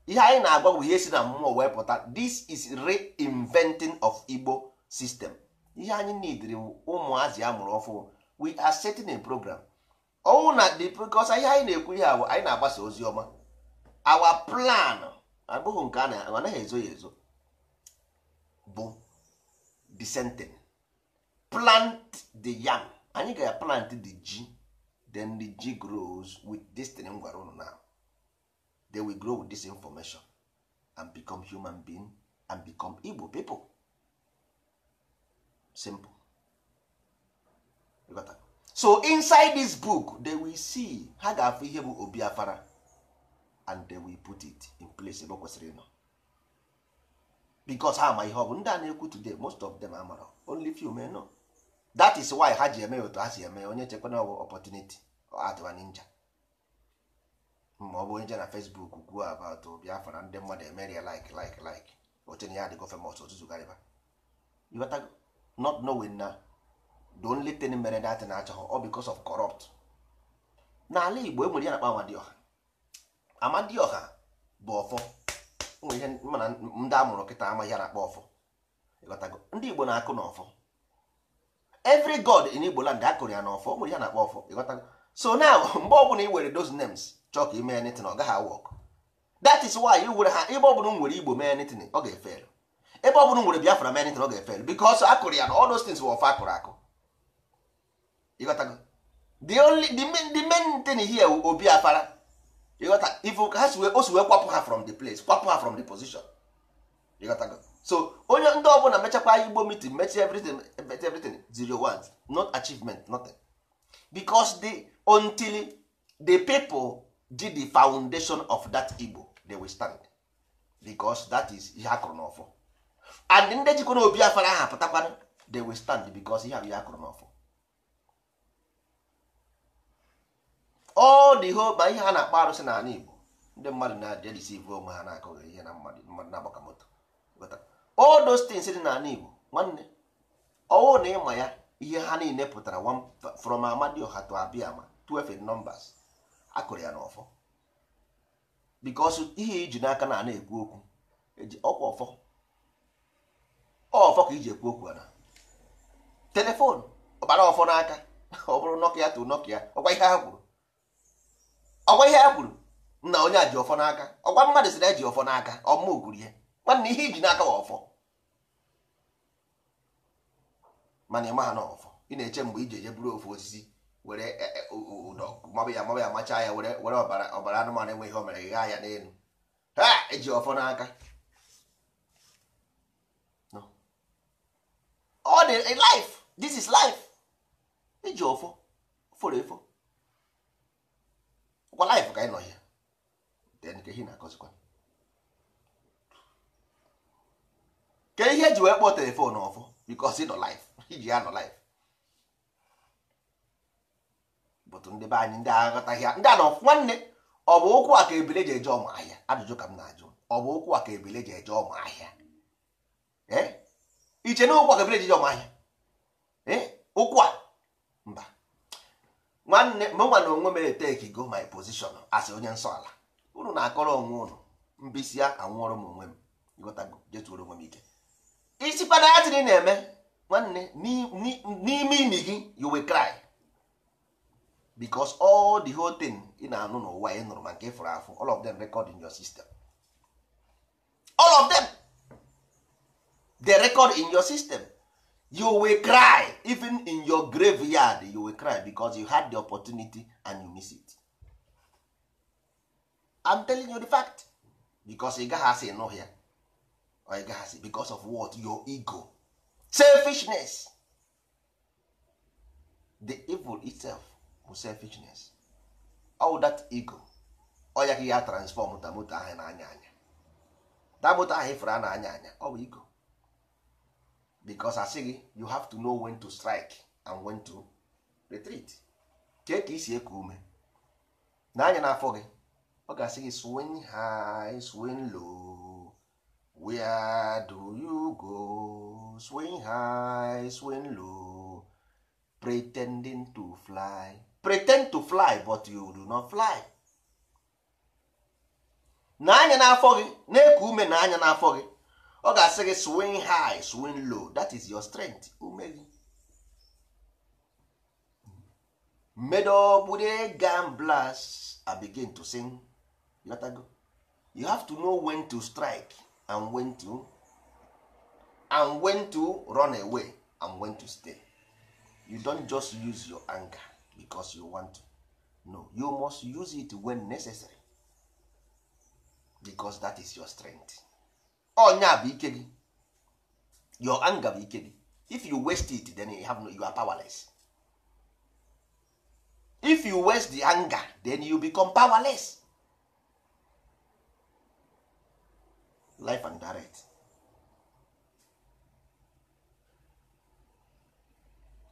ihe anyị na-agwa bụ ihe si na mmụọ wee pụta this is reinventing of Igbo system ihe anyị nidiri ụmụazị a mụrụ ọfụ we are setting a program ọnwụ na the because ihe anyị na-ekwu ihe ahụ anyị na-agbasa ozi ọma our plan abụghị nke a na anaghị ezo ya ezo bụ sentence. plant the yam anyị ga-plant the ji then the ji grows with this thing m gwara unu now they will grow with this information and become human being and become Igbo people simple you got that? so inside this book they will see ha ga-afụ ihe bụ Obiafara and they will put it in place ebe ọ kwesịrị ịnọ because ha ama ihe ọ bụ ndị a na-ekwu today most of them amara only few men know that is why ha ji eme otu ha si eme onye chekwana ọ bụ opportunity atụwa ninja ma ọ bụ onye na Facebook kwuo about Biafra ndị mmadụ eme ria like like like otu ya adịgo famous ọtụtụ garịba ịghọtago not knowing na the only thing mere that na-achọghị ọ because of corrupt n'ala Igbo enwere ya na-akpa Amadioha Amadioha bụ ọfọ nwere ihe mana ndị amụrụ kịta amaghị ya na-akpa ọfọ ịghọtago ndị Igbo na-akụ na ọfọ every god in Igbo land akụrụ ya n'ọfọ ọ nwere ya na-akpọ ọfọ ịghọtago so now [LAUGHS] mgbe ọbụla ị nwere those names chọọ ka ime anything ọ gaghị awọk that is why ị were ha ebe ọbụla nwere Igbo mee anything ọ ga-efel ebe ọbụla nwere Biafra mee anything ọ ga-efel because akụrụ ya na all those things were ọfọ akụrụ akụ ịghọtago the only the main, thing here obi afara ịghọta if ha si wee kwapụ ha from the place kwapụ ha from the position ịghọtago so onye ndị ọbụla mechakwa igbo meeting mechi everything everything zero ones not achievement nothing because the until the people did the foundation of that igbo they will stand because that is ihe akụrụ n'ọfọ and ndị jikwa obi afara ha pụtakwana they will stand because ihe bụ ihe akụrụ n'ọfọ all the whole ma ihe ha na-akpa arụsị n'ala igbo ndị mmadụ na-adịrịsi e ivu onwe ha na-akụghị ihe na mmadụ na-agbaka moto old those dị n'ala Igbo nwanne ọwụ na ịma ya ihe ha niile pụtara from Amadioha to Abiama twelve in numbers akụrụ ya n'ọfọ because ihe iji n'aka na na-ekwu okwu eji ọkwa ọfọ ọfọ ka iji ekwu okwu ana telefon ọbara ọfọ n'aka ọ bụrụ nọkia to nọkia ọkwa ihe ha kwuru ọkwa ihe ha kwuru na onye a ji ọfọ n'aka ọkwa mmadụ sị na eji ọfọ n'aka ọmụ gwuri ya nwanne ihe iji n'aka ọfọ mana ịma ha na ọfọ ị na-eche mgbe iji eje buru ofu osisi were ụdọ e, e, mabụ ya mabụ ya machaa ya were were ọbara anụmanụ enweghị ihe o mere ghaa ya n'elu ha eji ọfọ n'aka ọ dị life this is life iji e ọfọ fọrọ efo kwa life ka ị nọ ya nke hi na-akọzikwa kedu ihe ji wee kpọọ telefon ọfụ because ị nọ life iji ya nọ life bụtụ ndị be anyị ndị aghọtaghị ndị anọ nwanne ọ bụ ụkwụ a ka ebile ji eje ọmụ ahịa ajụjụ ka m na-ajụ ọ bụ ụkwụ a ka ebile ji eje ọmụ ahịa e? iche na ụkwụ a ka ebile ji eje ọmụ ahịa ụkwụ e? a mba nwanne mụnwa na onwe mere take go my position asị onye nsọ ala unu na-akọrọ onwe unu mbisi ya anwụọrọ m onwe m ịghọtago jetuoro onwe m ike isi ya tiri na-eme nwanne n'ime imi gị you will cry because all the whole thing ị na-anụ n'ụwa ị nụrụ ma nke afụ all of them record in your system all of them they record in your system you will cry even in your graveyard you will cry because you had the opportunity and you miss it I'm telling you the fact because ị gaghị asị nụ anyị gasị because of what your ego selfishness the evil itself bụ selfishness all that ego ọ ya ka ya transform ta moto ahụ na-anya anya ta moto ahụ ifere a na-anya anya ọ bụ ego because asị gị you have to know when to strike and when to retreat take ka isi eku ume na anya n'afọ gị ọ ga-asị gị swing high swing low where do you go swing high swing low pretending to fly pretend to fly but you do not fly na anya n'afọ gị na-eku ume na anya n'afọ gị ọ ga-asị gị swing high swing low that is your strength ume gị medobude gamblas I begin to sing you have to know when to strike and when to and when to run away and when to stay you don't just use your anger because you want to no you must use it when necessary because that is your strength onya oh, bụ ike gị your anger bụ ike gị if you waste it then you, have no, you are powerless if you waste the anger then you become powerless life and direct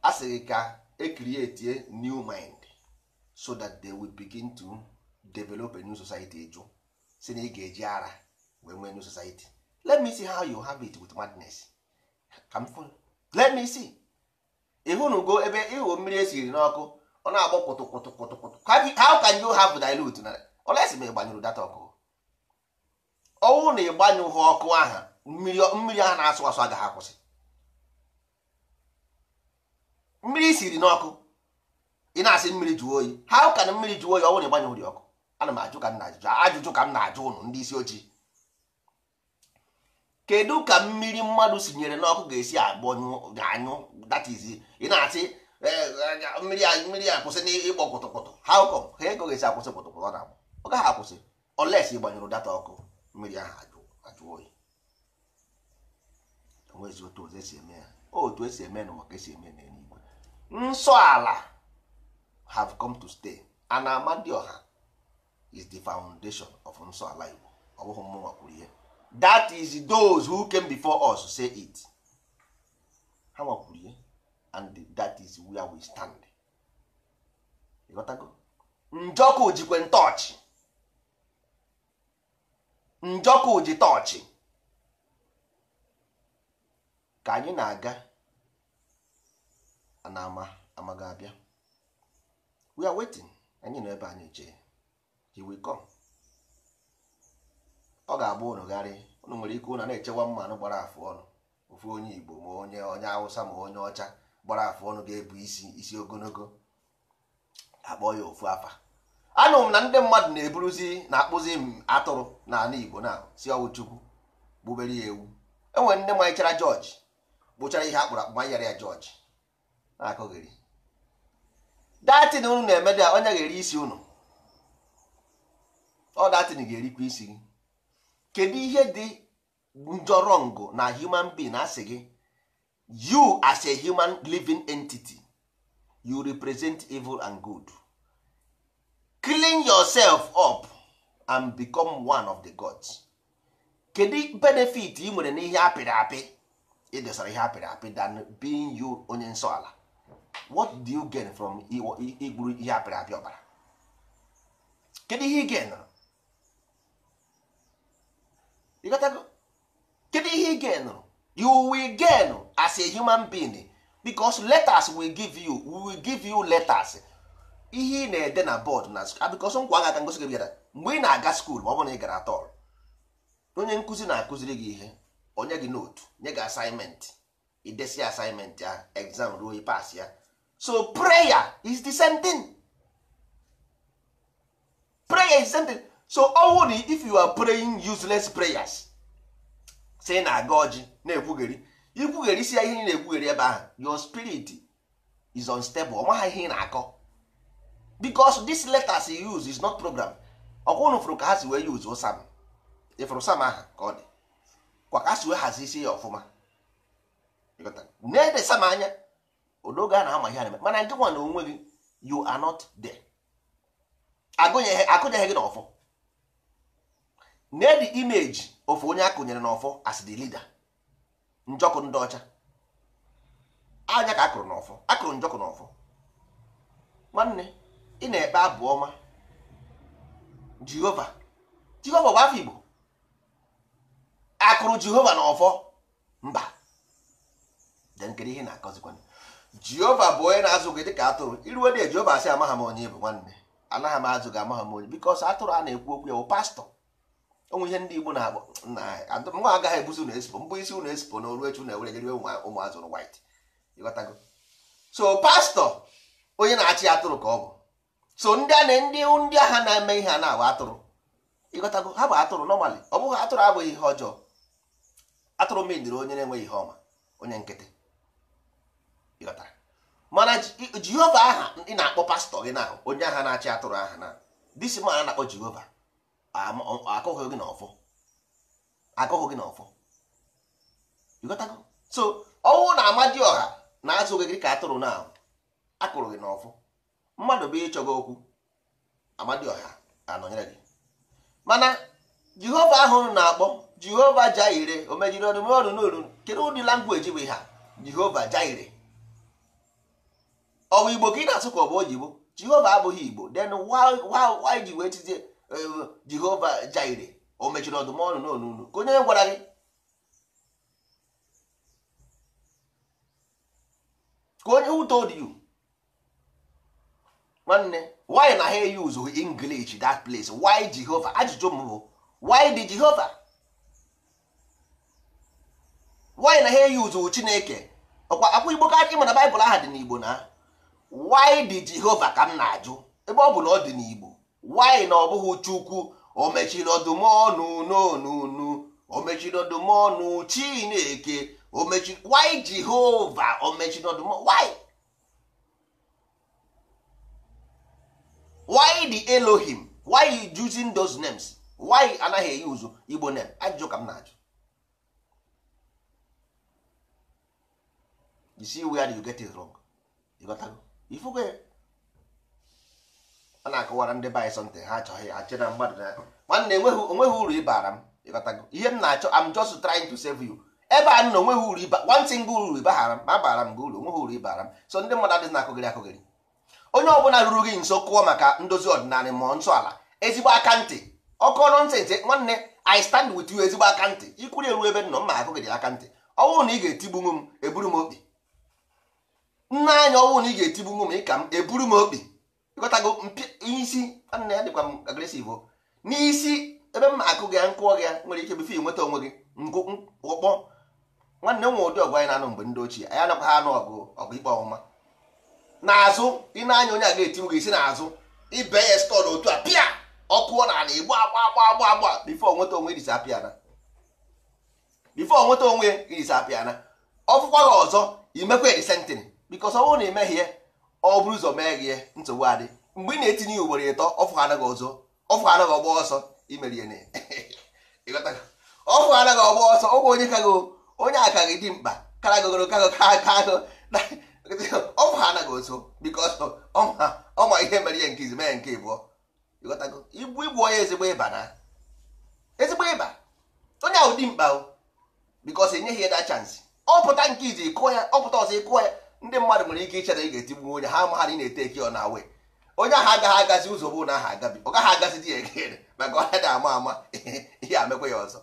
a ka e create new mind so that they will begin to develop a new society jụ si na ị ga-eji ara wee nwee new society let me see how you have it with madness ka let me see ịhụnugo ebe ịghụ mmiri esiri n'ọkụ ọ na-agbọ kwụtụ kwụtụ kwụtụ kwụtụ how can you have dilute na olesi ma ị gbanyụrụ data ọkụ ọnwụ na ịgbanyụghị ọkụ aha mmiri aha na-asụ asụ agaghị akwụsị mmiri siri n'ọkụ ị na-asị mmiri jụọ oyi ha ka na mmiri jụọ oyi ọnwụ na ịgbanyụghị ọkụ ana m ajụ ka m na-ajụjụ ajụjụ ka m na-ajụ ụnụ ndị isi ojii kedu ka mmiri mmadụ sinyere n'ọkụ ga-esi agbanyụ anyụ that is ị na-asị eh, eh, eh, mmiri a mmiri a kwụsị n'ịkpọ kpụtụkpụtụ ha ụkọ ha ego ga-esi akwụsị kpụtụkpụtụ ọ na-agbụ ọ gaghị akwụsị oles ị data ọkụ mmiri ahụ ajụ oyi onwezi otu ụzọ esi eme ya otu esi eme n'ụwa ka esi eme n'eluigwe nsọ ala have come to stay ana ama ọha is the foundation of nsọ ala igbo ọ bụghị mmụnwa kwuru ihe that is those who came before us say it ha nwakwuru ihe and that is where we stand ịghọtago njọkụ jikwe ntọọchị njọkụ ji tọọchị ka anyị na-aga na ama amaga abịa we are waiting anyị nọ ebe anyị jee he will come ọ ga agba ụnụ gharị ụnụ nwere ike ụna na-echewa mmanụ gbara afụ ọnụ ofu onye Igbo ma onye onye Hausa ma onye ọcha gbara afụ ọnụ ga-ebu isi isi ogologo akpọ ya ofu afa anụ m na ndị mmadụ na-eburuzi na-akpụzi m atụrụ n'ala Igbo na si ọwụ Chukwu gbubere ya ewu enwere ndị manyechara jọji gbụchara ihe akpụrụ akpụ manyere ya jọji na-akụghịrị datin unu na-emede a onye ga-eri isi unu ọ datin ga-erikwa isi gị kedu ihe dị njọrọngụ na human being asị gị you as a human living entity you represent evil and good clean yourself up and become one of the gods kedu benefit ị nwere n'ihe apịrị apị ịdosara ihe apịrị apị than being you onye nsọ ala what do you gain from igburu ihe apịrị apị ọbara kedu ihe ị gainụrụ ịghọtago kedu ihe ị gainụrụ you will gain as a human being because letters will give you will give you letters ihe ị na-ede na bọọdụ na abịkọsọ nkwa aga aka ngosi gị bịara mgbe ị na-aga skuul ma ọ bụrụ na ị gara tọl onye nkụzi na-akụziri gị ihe onye gị notu nye gị asaịmentị idesi asaịmentị ya egzam ruo ịpas ya so prayer is the same thing prayer is the same thing so ọnwụ na if you are praying useless prayers say na-aga ọjị na-ekwugheri ikwugheri isi ya ihe ị na-ekwugheri ebe ahụ your spirit is unstable ọ maghị ihe ị na-akọ because this letters he use is not program ọkwa unu fụrụ ka ha si wee use sam ịfụrụ sam aha ka ọ dị kwa ka ha si wee hazisie ya ọfụma na-ede sam anya odoge a na-ama ihe na mana nke nwa na onwe gị you are not there akụnyeghị gị n'ọfọ na-edi image ofu onye akụnyere n'ọfọ as the leader njọkụ ndị ọcha anya ka akụrụ n'ọfọ akụrụ njọkụ n'ọfọ nwanne ị na-ekpe abụ ọma jehova jehova bụ afọ igbo akụrụ jehova na ọfọ mba denkiri ihe na-akọzikwana jehova bụ onye na-azụ gị dịka atụrụ iruwe dị jehova asị amaghị m onye bụ nwanne anaghị m azụ gị amaghị m onye bikos atụrụ a na-ekwu okwu ya bụ pastọ onwe ihe ndị igbo na-agba nwa agaghị ebuzi ụlọ esipo mbụ isi ụlọ esipo na oru na ụlọ ewere jere ụmụ azụrụ white ịghọtago so pastọ onye na-achị atụrụ ka ọ bụ so ndị a na ndị ndị agha na-eme ihe a na-abụ atụrụ ịghọtago ha bụ atụrụ nọmalị ọ bụghị atụrụ abụghị ihe ọjọọ atụrụ mediri onye na-enweghị ihe ọma onye nkịtị ịghọtara mana jehova aha ị na-akpọ pastọ gị na onye agha na-achị atụrụ aha na disi ma a na-akpọ jehova akụghị gị n'ọfọ akụghị gị n'ọfọ ịghọtago so ọnwụ na ọha na-azụ gị ka atụrụ na akụrụ gị n'ọfọ mmadụ bụ ịchọga okwu amadioha anọnyere gị mana jehova ahụ na-akpọ jehova jaire omejiri ọnụ mere n'olu kedu ụdị langweji bụ ha jehova jaire ọwa igbo ka ị na-asụ ka ọ bụ oyibo jehova abụghị igbo then why ji wee tizie jehova jaire o mechiri ọdụm ọnụ n'olu ka onye gwara gị ka onye who told nwanne why na ha use English that place why Jehovah ajụjụ m bụ why dị Jehovah why na ha use Chineke ọkwa akwa Igbo ka ị mana Baịbụl aha dị n'Igbo na why dị jehova ka m na-ajụ ebe ọ bụ na ọ dị n'Igbo why na ọ bụghị Chukwu o why the elohim why you using those names why anaghị use igbo name ajụjụ ka m na-ajụ you see where you get it wrong ifu got ifugo a na-akọwara ndị bai sọnte ha achọghị achị na mmadụ na nwanne onweghị uru ịbara m ịghọtago ihe m na-achọ am just trying to save you ebe a nọ onweghị uru ịba one single uru ịbahara m ma bara m gị uru onweghị uru ịbara m so ndị mmadụ adịghị na-akụgịrị akụgịrị onye ọbụla ruru gị nso kụọ maka ndozi ọdịnala ma nsọ ala ezigbo aka ntị ọkọ ntị nwanne i stand with you ezigbo aka ntị ikwuri eru ebe nọ mma agụgị dị aka ntị ọnwụ na ị ga-etigbunwu m eburu m okpi nna anyị ọnwụ na ị ga-etigbunwu m ịka m eburu m okpi ịghọtago isi nwanne ya dịkwa m agresiv n'isi ebe m akụ gị nkụọ gị nwere ike befe nweta onwe gị nkụkpọ nwanne m ụdị ọgụ anyị na-anụ mgbe ndị ochie anyị anakwa ha anụ ọgụ ọgụ ikpe ọmụma n'azụ ị na-anya onye a ga-eti ga-esi n'azụ ibe ya stọl otu a pịa ọkụ na ala igbo agba agba agba agba bifo nweta onwe ijisi apịana bifo nweta onwe ijisi apịana ọfụkwa gị ọzọ imekwa edisentin bikos ọ bụrụ na ya ọ bụrụ ụzọ mee gị nsogbu adị mgbe ị na-etinye ugboro ịtọ ọfụ anaghị ọzọ ọfụ anaghị ọgba ọsọ imerie ọfụ anaghị ọgba ọsọ ọgwa onye kago onye aka gị dị mkpa kara gogoro kago ka aka ọnwụ ha anaghị oso bikos ọma ihe mere ihe nke izi mee nke ịbụọ ịghọtago igbu onye ezigbo ịba na ezigbo ịba onye ahụ dị mkpa bikos enyeghị ya da chansị ọpụta nke izi ịkụọ ya ọpụta ọzọ ịkụọ ya ndị mmadụ nwere ike ichere ị ga-etigbu onye ha amaghara ị na-ete eki ọ na awe onye ahụ agaghị agazi ụzọ bụ na aha agabi ọ gaghị agazi di ya egere maka ọnya na ama ama [LAUGHS] ihe amekwa ya ọzọ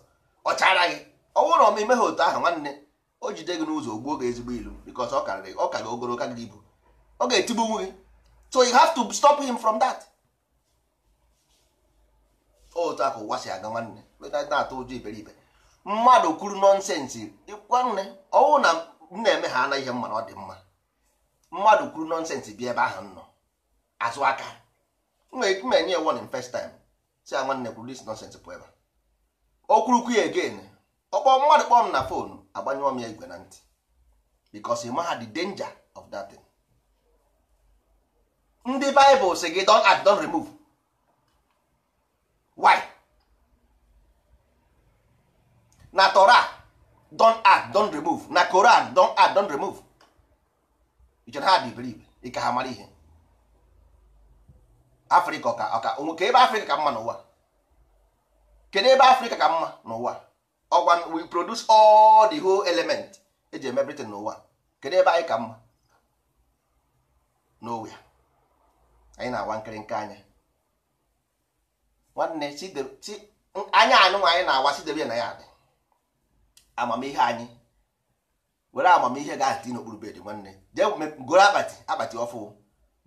ọ chara gị ọ bụrụ na ọma imeghị otu ahụ nwanne o jide gị n'ụzọ gbuo gị ezigbo ilu because ọ karịrị ọ ka gị ogologo ka gị ibu ọ ga-etigbu gị so you have to stop him from that otu akụ ụwa aga nwanne na-atụ ụjọ iberibe mmadụ kwuru nọnsensị ịkwa nne ọnwụ na m na-eme ha anaghị ihe mma na ọ dị mma mmadụ kwuru nọnsensị bịa ebe ahụ nọ azụ aka m enye ya warning first time si ya nwanne kwuru dis nọnsensị pụ ebe o kwurukwu ya again ọkpọ mmadụ kpọọ m na fonu agbanyụọ m ya igwe na ntị because you had the danger of that thing. ndị Bible sị gị don act don remove why na Torah don act don remove na Koran don act don remove ichere ha dị believe ịka ha mara ihe Afrịka ọka ọka nwoke ebe Afrịka ka mma n'ụwa kedu ebe Afrịka ka mma n'ụwa ọgwa we produce all the whole element eji eme everything n'ụwa kedu ebe anyị ka mma n'owe anyị na-awa nke anya nwanne anya anụnwa anyị na-awa sidebe na ya adị amamihe anyị were amamihe ga ati n'okpuru bed nwanne jee goro akpati akpati ọfụ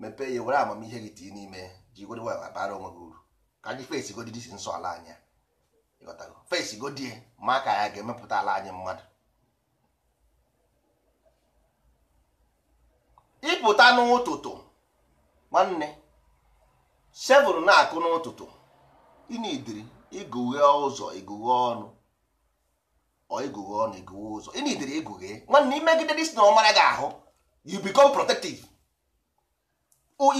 mepee ya were amamihe gị tii n'ime ji onwe gị uru ka anyị fesi godidisi nsọ ala anya fesi godie ma ka ya ga-emepụta ala anyị mmadụ ịpụta n'ụtụtụ nwanne sevụl na-akụ n'ụtụtụ ịnidiri igughe ụzọ igughe ọnụ ọ igughe ọnụ igughe ụzọ ịnidiri igughe nwanne imegide dis na ọmara gị ahụ you become protective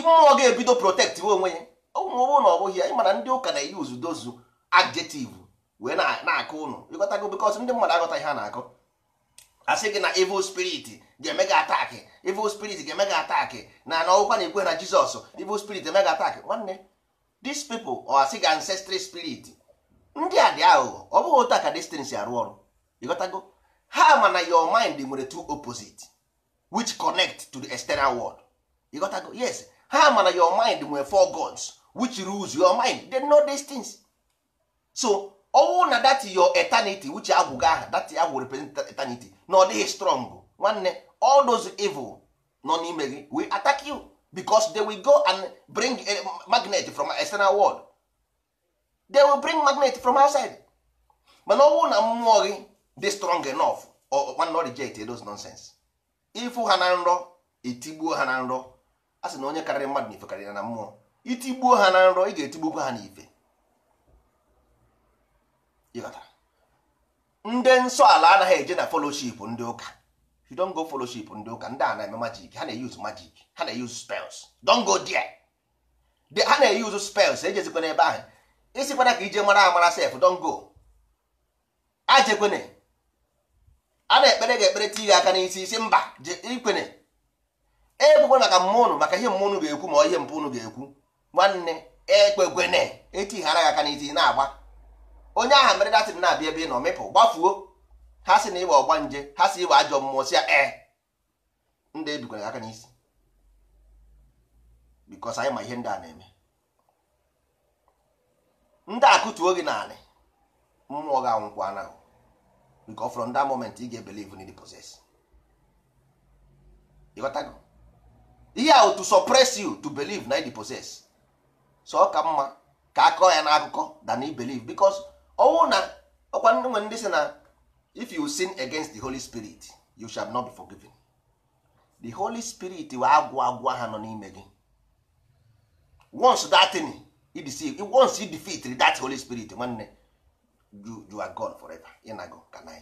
mmụọ ga-ebido protect onwe ya ụmụ na ọbụghị bụghị ya ịmana ndị ụka na-eyuzu dozu adjective wee na-akọ ụnụ ịghọtago bikos ndị mmadụ aghọta ihe a na-akọ asị gị na evil spirit ga-eme gị ataki evil spirit ga-eme gị ataki na na ọgwụkwa na-ekwe na jizọs evil spirit eme gị ataki nwanne these people ọ asị gị ancestry spirit ndị a dị aghụghọ ọ bụghị otu a ka destin si arụ ọrụ ịghọtago ha ma na your mind nwere two opposite which connect to the external world ịghọtago yes ha ma na your mind nwere four gods which rules your mind they know these things so ọnwụ na dati your eternity which agwụga aha that agwụ represent eternity na ọ dịghị strong nwanne all those evil nọ n'ime gị we attack you because they will go and bring a eh, magnet from external world they will bring magnet from outside mana ọnwụ na mmụọ gị dị strong enough or not reject those nonsense ịfụ ha na nrọ etigbuo ha na nrọ a sị na onye karịrị mmadụ na ife karịrị na mmụọ itigbuo ha na nrọ ị ga-etigbukwa ha na ife ndị nsọ ala anaghị eje na foloship ndị ụka you don go foloship ndị ụka ndị a na-eme majik ha na-eyuzu majik ha na-eyuzu spels don go there ha na-eyuzu spells ejezikwana ebe ahụ isikwana e ka ije mara amara sef don go ajekwene a na-ekpere ga-ekpere tighe aka n'isi isi mba ikwene ekwekwe maka mmụọ maka ihe mmụnụ ga-ekwu ma ọ ihe mpụnụ ga-ekwu nwanne ekpekwene etighara gị aka n'isi na-agba onye aha mere datin na-abịa ebe ị nọ mịpụ gbafuo ha sị na ịwa ọgba nje ha sị ịwa ajọ mmụọ si ya ee eh. ndị ebikwara aka n'isi bikos anyị ma ihe ndị a na-eme ndị akụtuo gị naanị mmụọ gị anwụkwụ anahụ bikọ from that moment ị ga-ebelieve in the process ịghọtago ihe ahụ to suppress you to believe na the process so ọ ka mma ka akọ ya n'akụkọ than i believe because ọnwụ na ọkwa nwe ndị si na if you sin against the holy spirit you shall not be forgiven the holy spirit wa agwụ agwụ ha nọ n'ime gị once that thing once you defeat that holy spirit nwanne you, you are gone forever inago kanai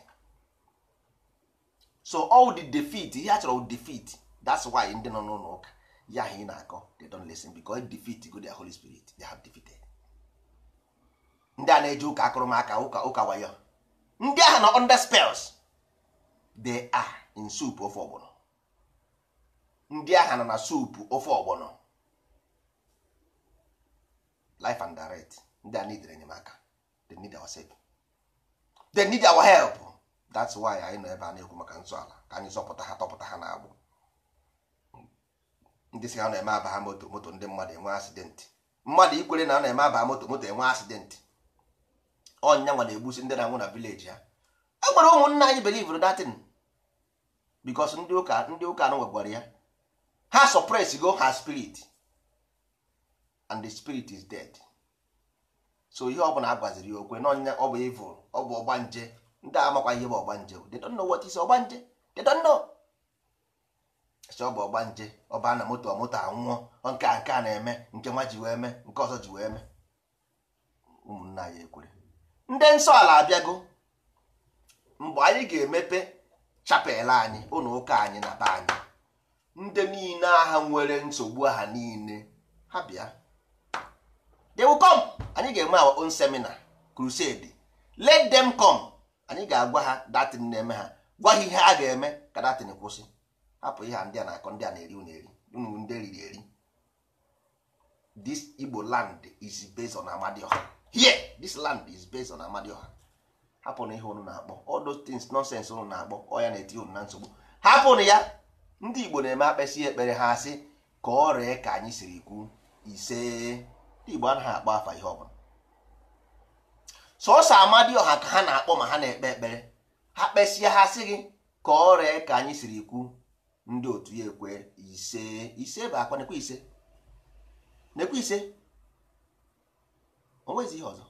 so all the defeat ihe a chọrọ defeat that's why ndị nọ n'ụlọ ụka ya ha ị na-akọ they don't listen because defeat go their holy spirit they have defeated ndị a na-eji ụka akụrụmaka ụka ụka wayo ndị ahụ nọ under spells they are in soup ofe ọgbọnọ ndị ahụ nọ na soup ofe ọgbọnọ life and direct ndị a need enyemaka they need our help they need our help that's why anyị nọ ebe a na-ekwu maka nsọ ala ka anyị zọpụta ha tọpụta ha na-agbụ ndị si ha na-eme aba ha moto moto ndị mmadụ enwe accident mmadụ ikwere na ọ na-eme aba moto moto enwe accident. ọnya nwa na-egbusi ndị na-anwụ na vileji ya e gwara ụmụnna anyị belivr datin bikos ndị ụka ndị ụka anụ nwegwara ya ha suppress go ha spirit and the spirit is dead so ihe ọbụla a ya okwe n'ọnya ọ bụ evil ọ bụ ọgbanje ndị a amakwa ihe bụ ọgbanje nje don't know what ọgbanje they don't know ọ bụ ọgbanje ọ na moto moto anwụọ nke a nke a na-eme nke nwa ji wee mee nke ọzọ ji wee mee ụmụnna anyị ekwere ndị nsọala ala abịago mgbe anyị ga-emepe chapel anyị ụlọ ụka anyị na be anyị ndị niile agha nwere nsogbu aha niile ha bịa they will come anyị ga eme our own seminar crusade let them come anyị ga-agwa ha datin na-eme ha gwa ha ihe a ga-eme ka datin kwụsị hapụ ihe ndị a na-akọ ndị a na-eri eri ndị eriri eri this Igbo land is based on here this land is based on amadioha hapụ na ihe unu na-akpọ all those things nonsense unu na-akpọ ọ ya na-eti unu na nsogbu hapụnụ ya ndị igbo na-eme akpesị ekpere ha asị ka ọ ree ka anyị siri kwu ise ndị igbo anaghị akpọ afa ihe ọbụla sọsọ amadioha ka ha na-akpọ ma ha na-ekpe ekpere ha kpesịa ha sị gị ka ọ ree ka anyị siri kwu ndị otu ya ekwe ise ise bụ akwa nekwe ise nekwe ise onwezi ihe ọzọ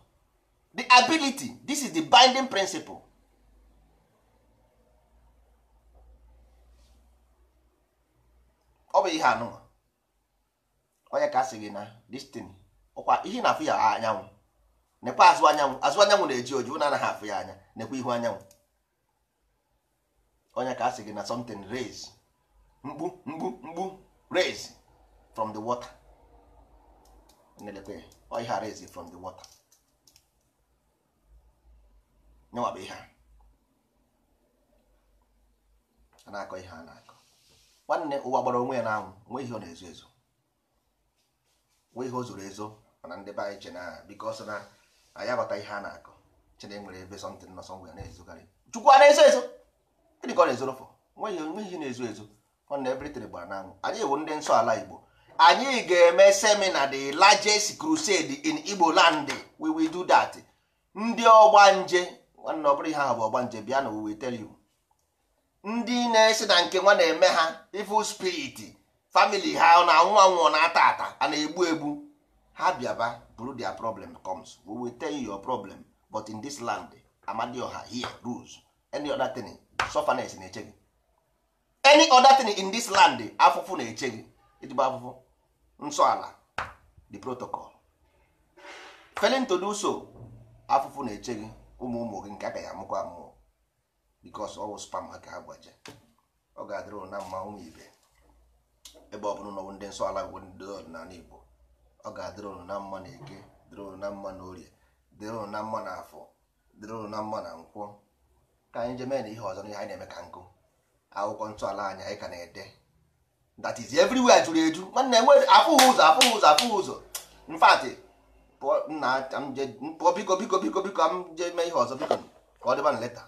the ability this is the binding principle ọ bụ ihe anụ onye ka asị gị na destin ọkwa ihe na-afụ ya anyanwụ nekwa azụ anyanwụ azụ anyanwụ na-eji oju na anaghị afụ ya anya nekwa ihu anyanwụ onye ka asị gị na something raise mgbu mgbu mgbu raise from the water na-elekwe ọ ihe arịzi from the water nyewa bụ ihe a na-akọ ihe a na-akọ nwanne ụwa gbara onwe ya n'anwụ nwe ihe ọ na-ezo ezo nwee ihe o zoro ezo mana ndị be anyị che na biko ọsọ na anyị aghọta ihe a na-akọ chena nwere ebe sọntị nọ sọ ngwa na-ezogharị chukwu a na-ezo ezo ịdịka ọ na-ezoro fọ nwe ihe na-ezo ezo nwanne everything gbara n'anwụ anyị ewu ndị nsọ ala igbo anyị ga-eme semina the largest crusade in Igbo land we will do that ndị ọgbanje nwanne ọ bụrụ ihe ahụ bụ ọgbanje bịa na we tell you ndị na-esi na nke nwa na-eme ha evil spirit family ha na-anwụ anwụ na-ata ata a na-egbu egbu ha bịaba bụrụ their problem comes we will tell you your problem but in this land ọha here rules any other thing sufferness na-eche gị any other thing in this land afụfụ na-eche gị ejigbo afụfụ nsọala the protocol failing to do so afụfụ na-eche gị ụmụ ụmụ gị nke ya amụkwa amụọ because ọwụ spam aka ha gbaje ọ ga-adịrị na mma ụmụ ibe ebe ọ bụla n'ọwụ ndị nsọ ala bụ ndị ọdịnala Igbo ọ ga-adịrị ụnụ na mma na eke dịrị ụnụ na mma na orie dịrị ụnụ na mma na afọ dịrị ụnụ na mma na nkwọ ka anyị jee mee na ihe ọzọ na ihe anyị na-eme ka nkụ akwụkwọ ntọala anyị anyị ka na-ede that is everywhere juru eju nwanne enwe afụghị ụzọ afụghị ụzọ afụghị ụzọ mfatị pụọ biko biko biko biko m je mee ihe ọzọ biko ka ọ dịba na leta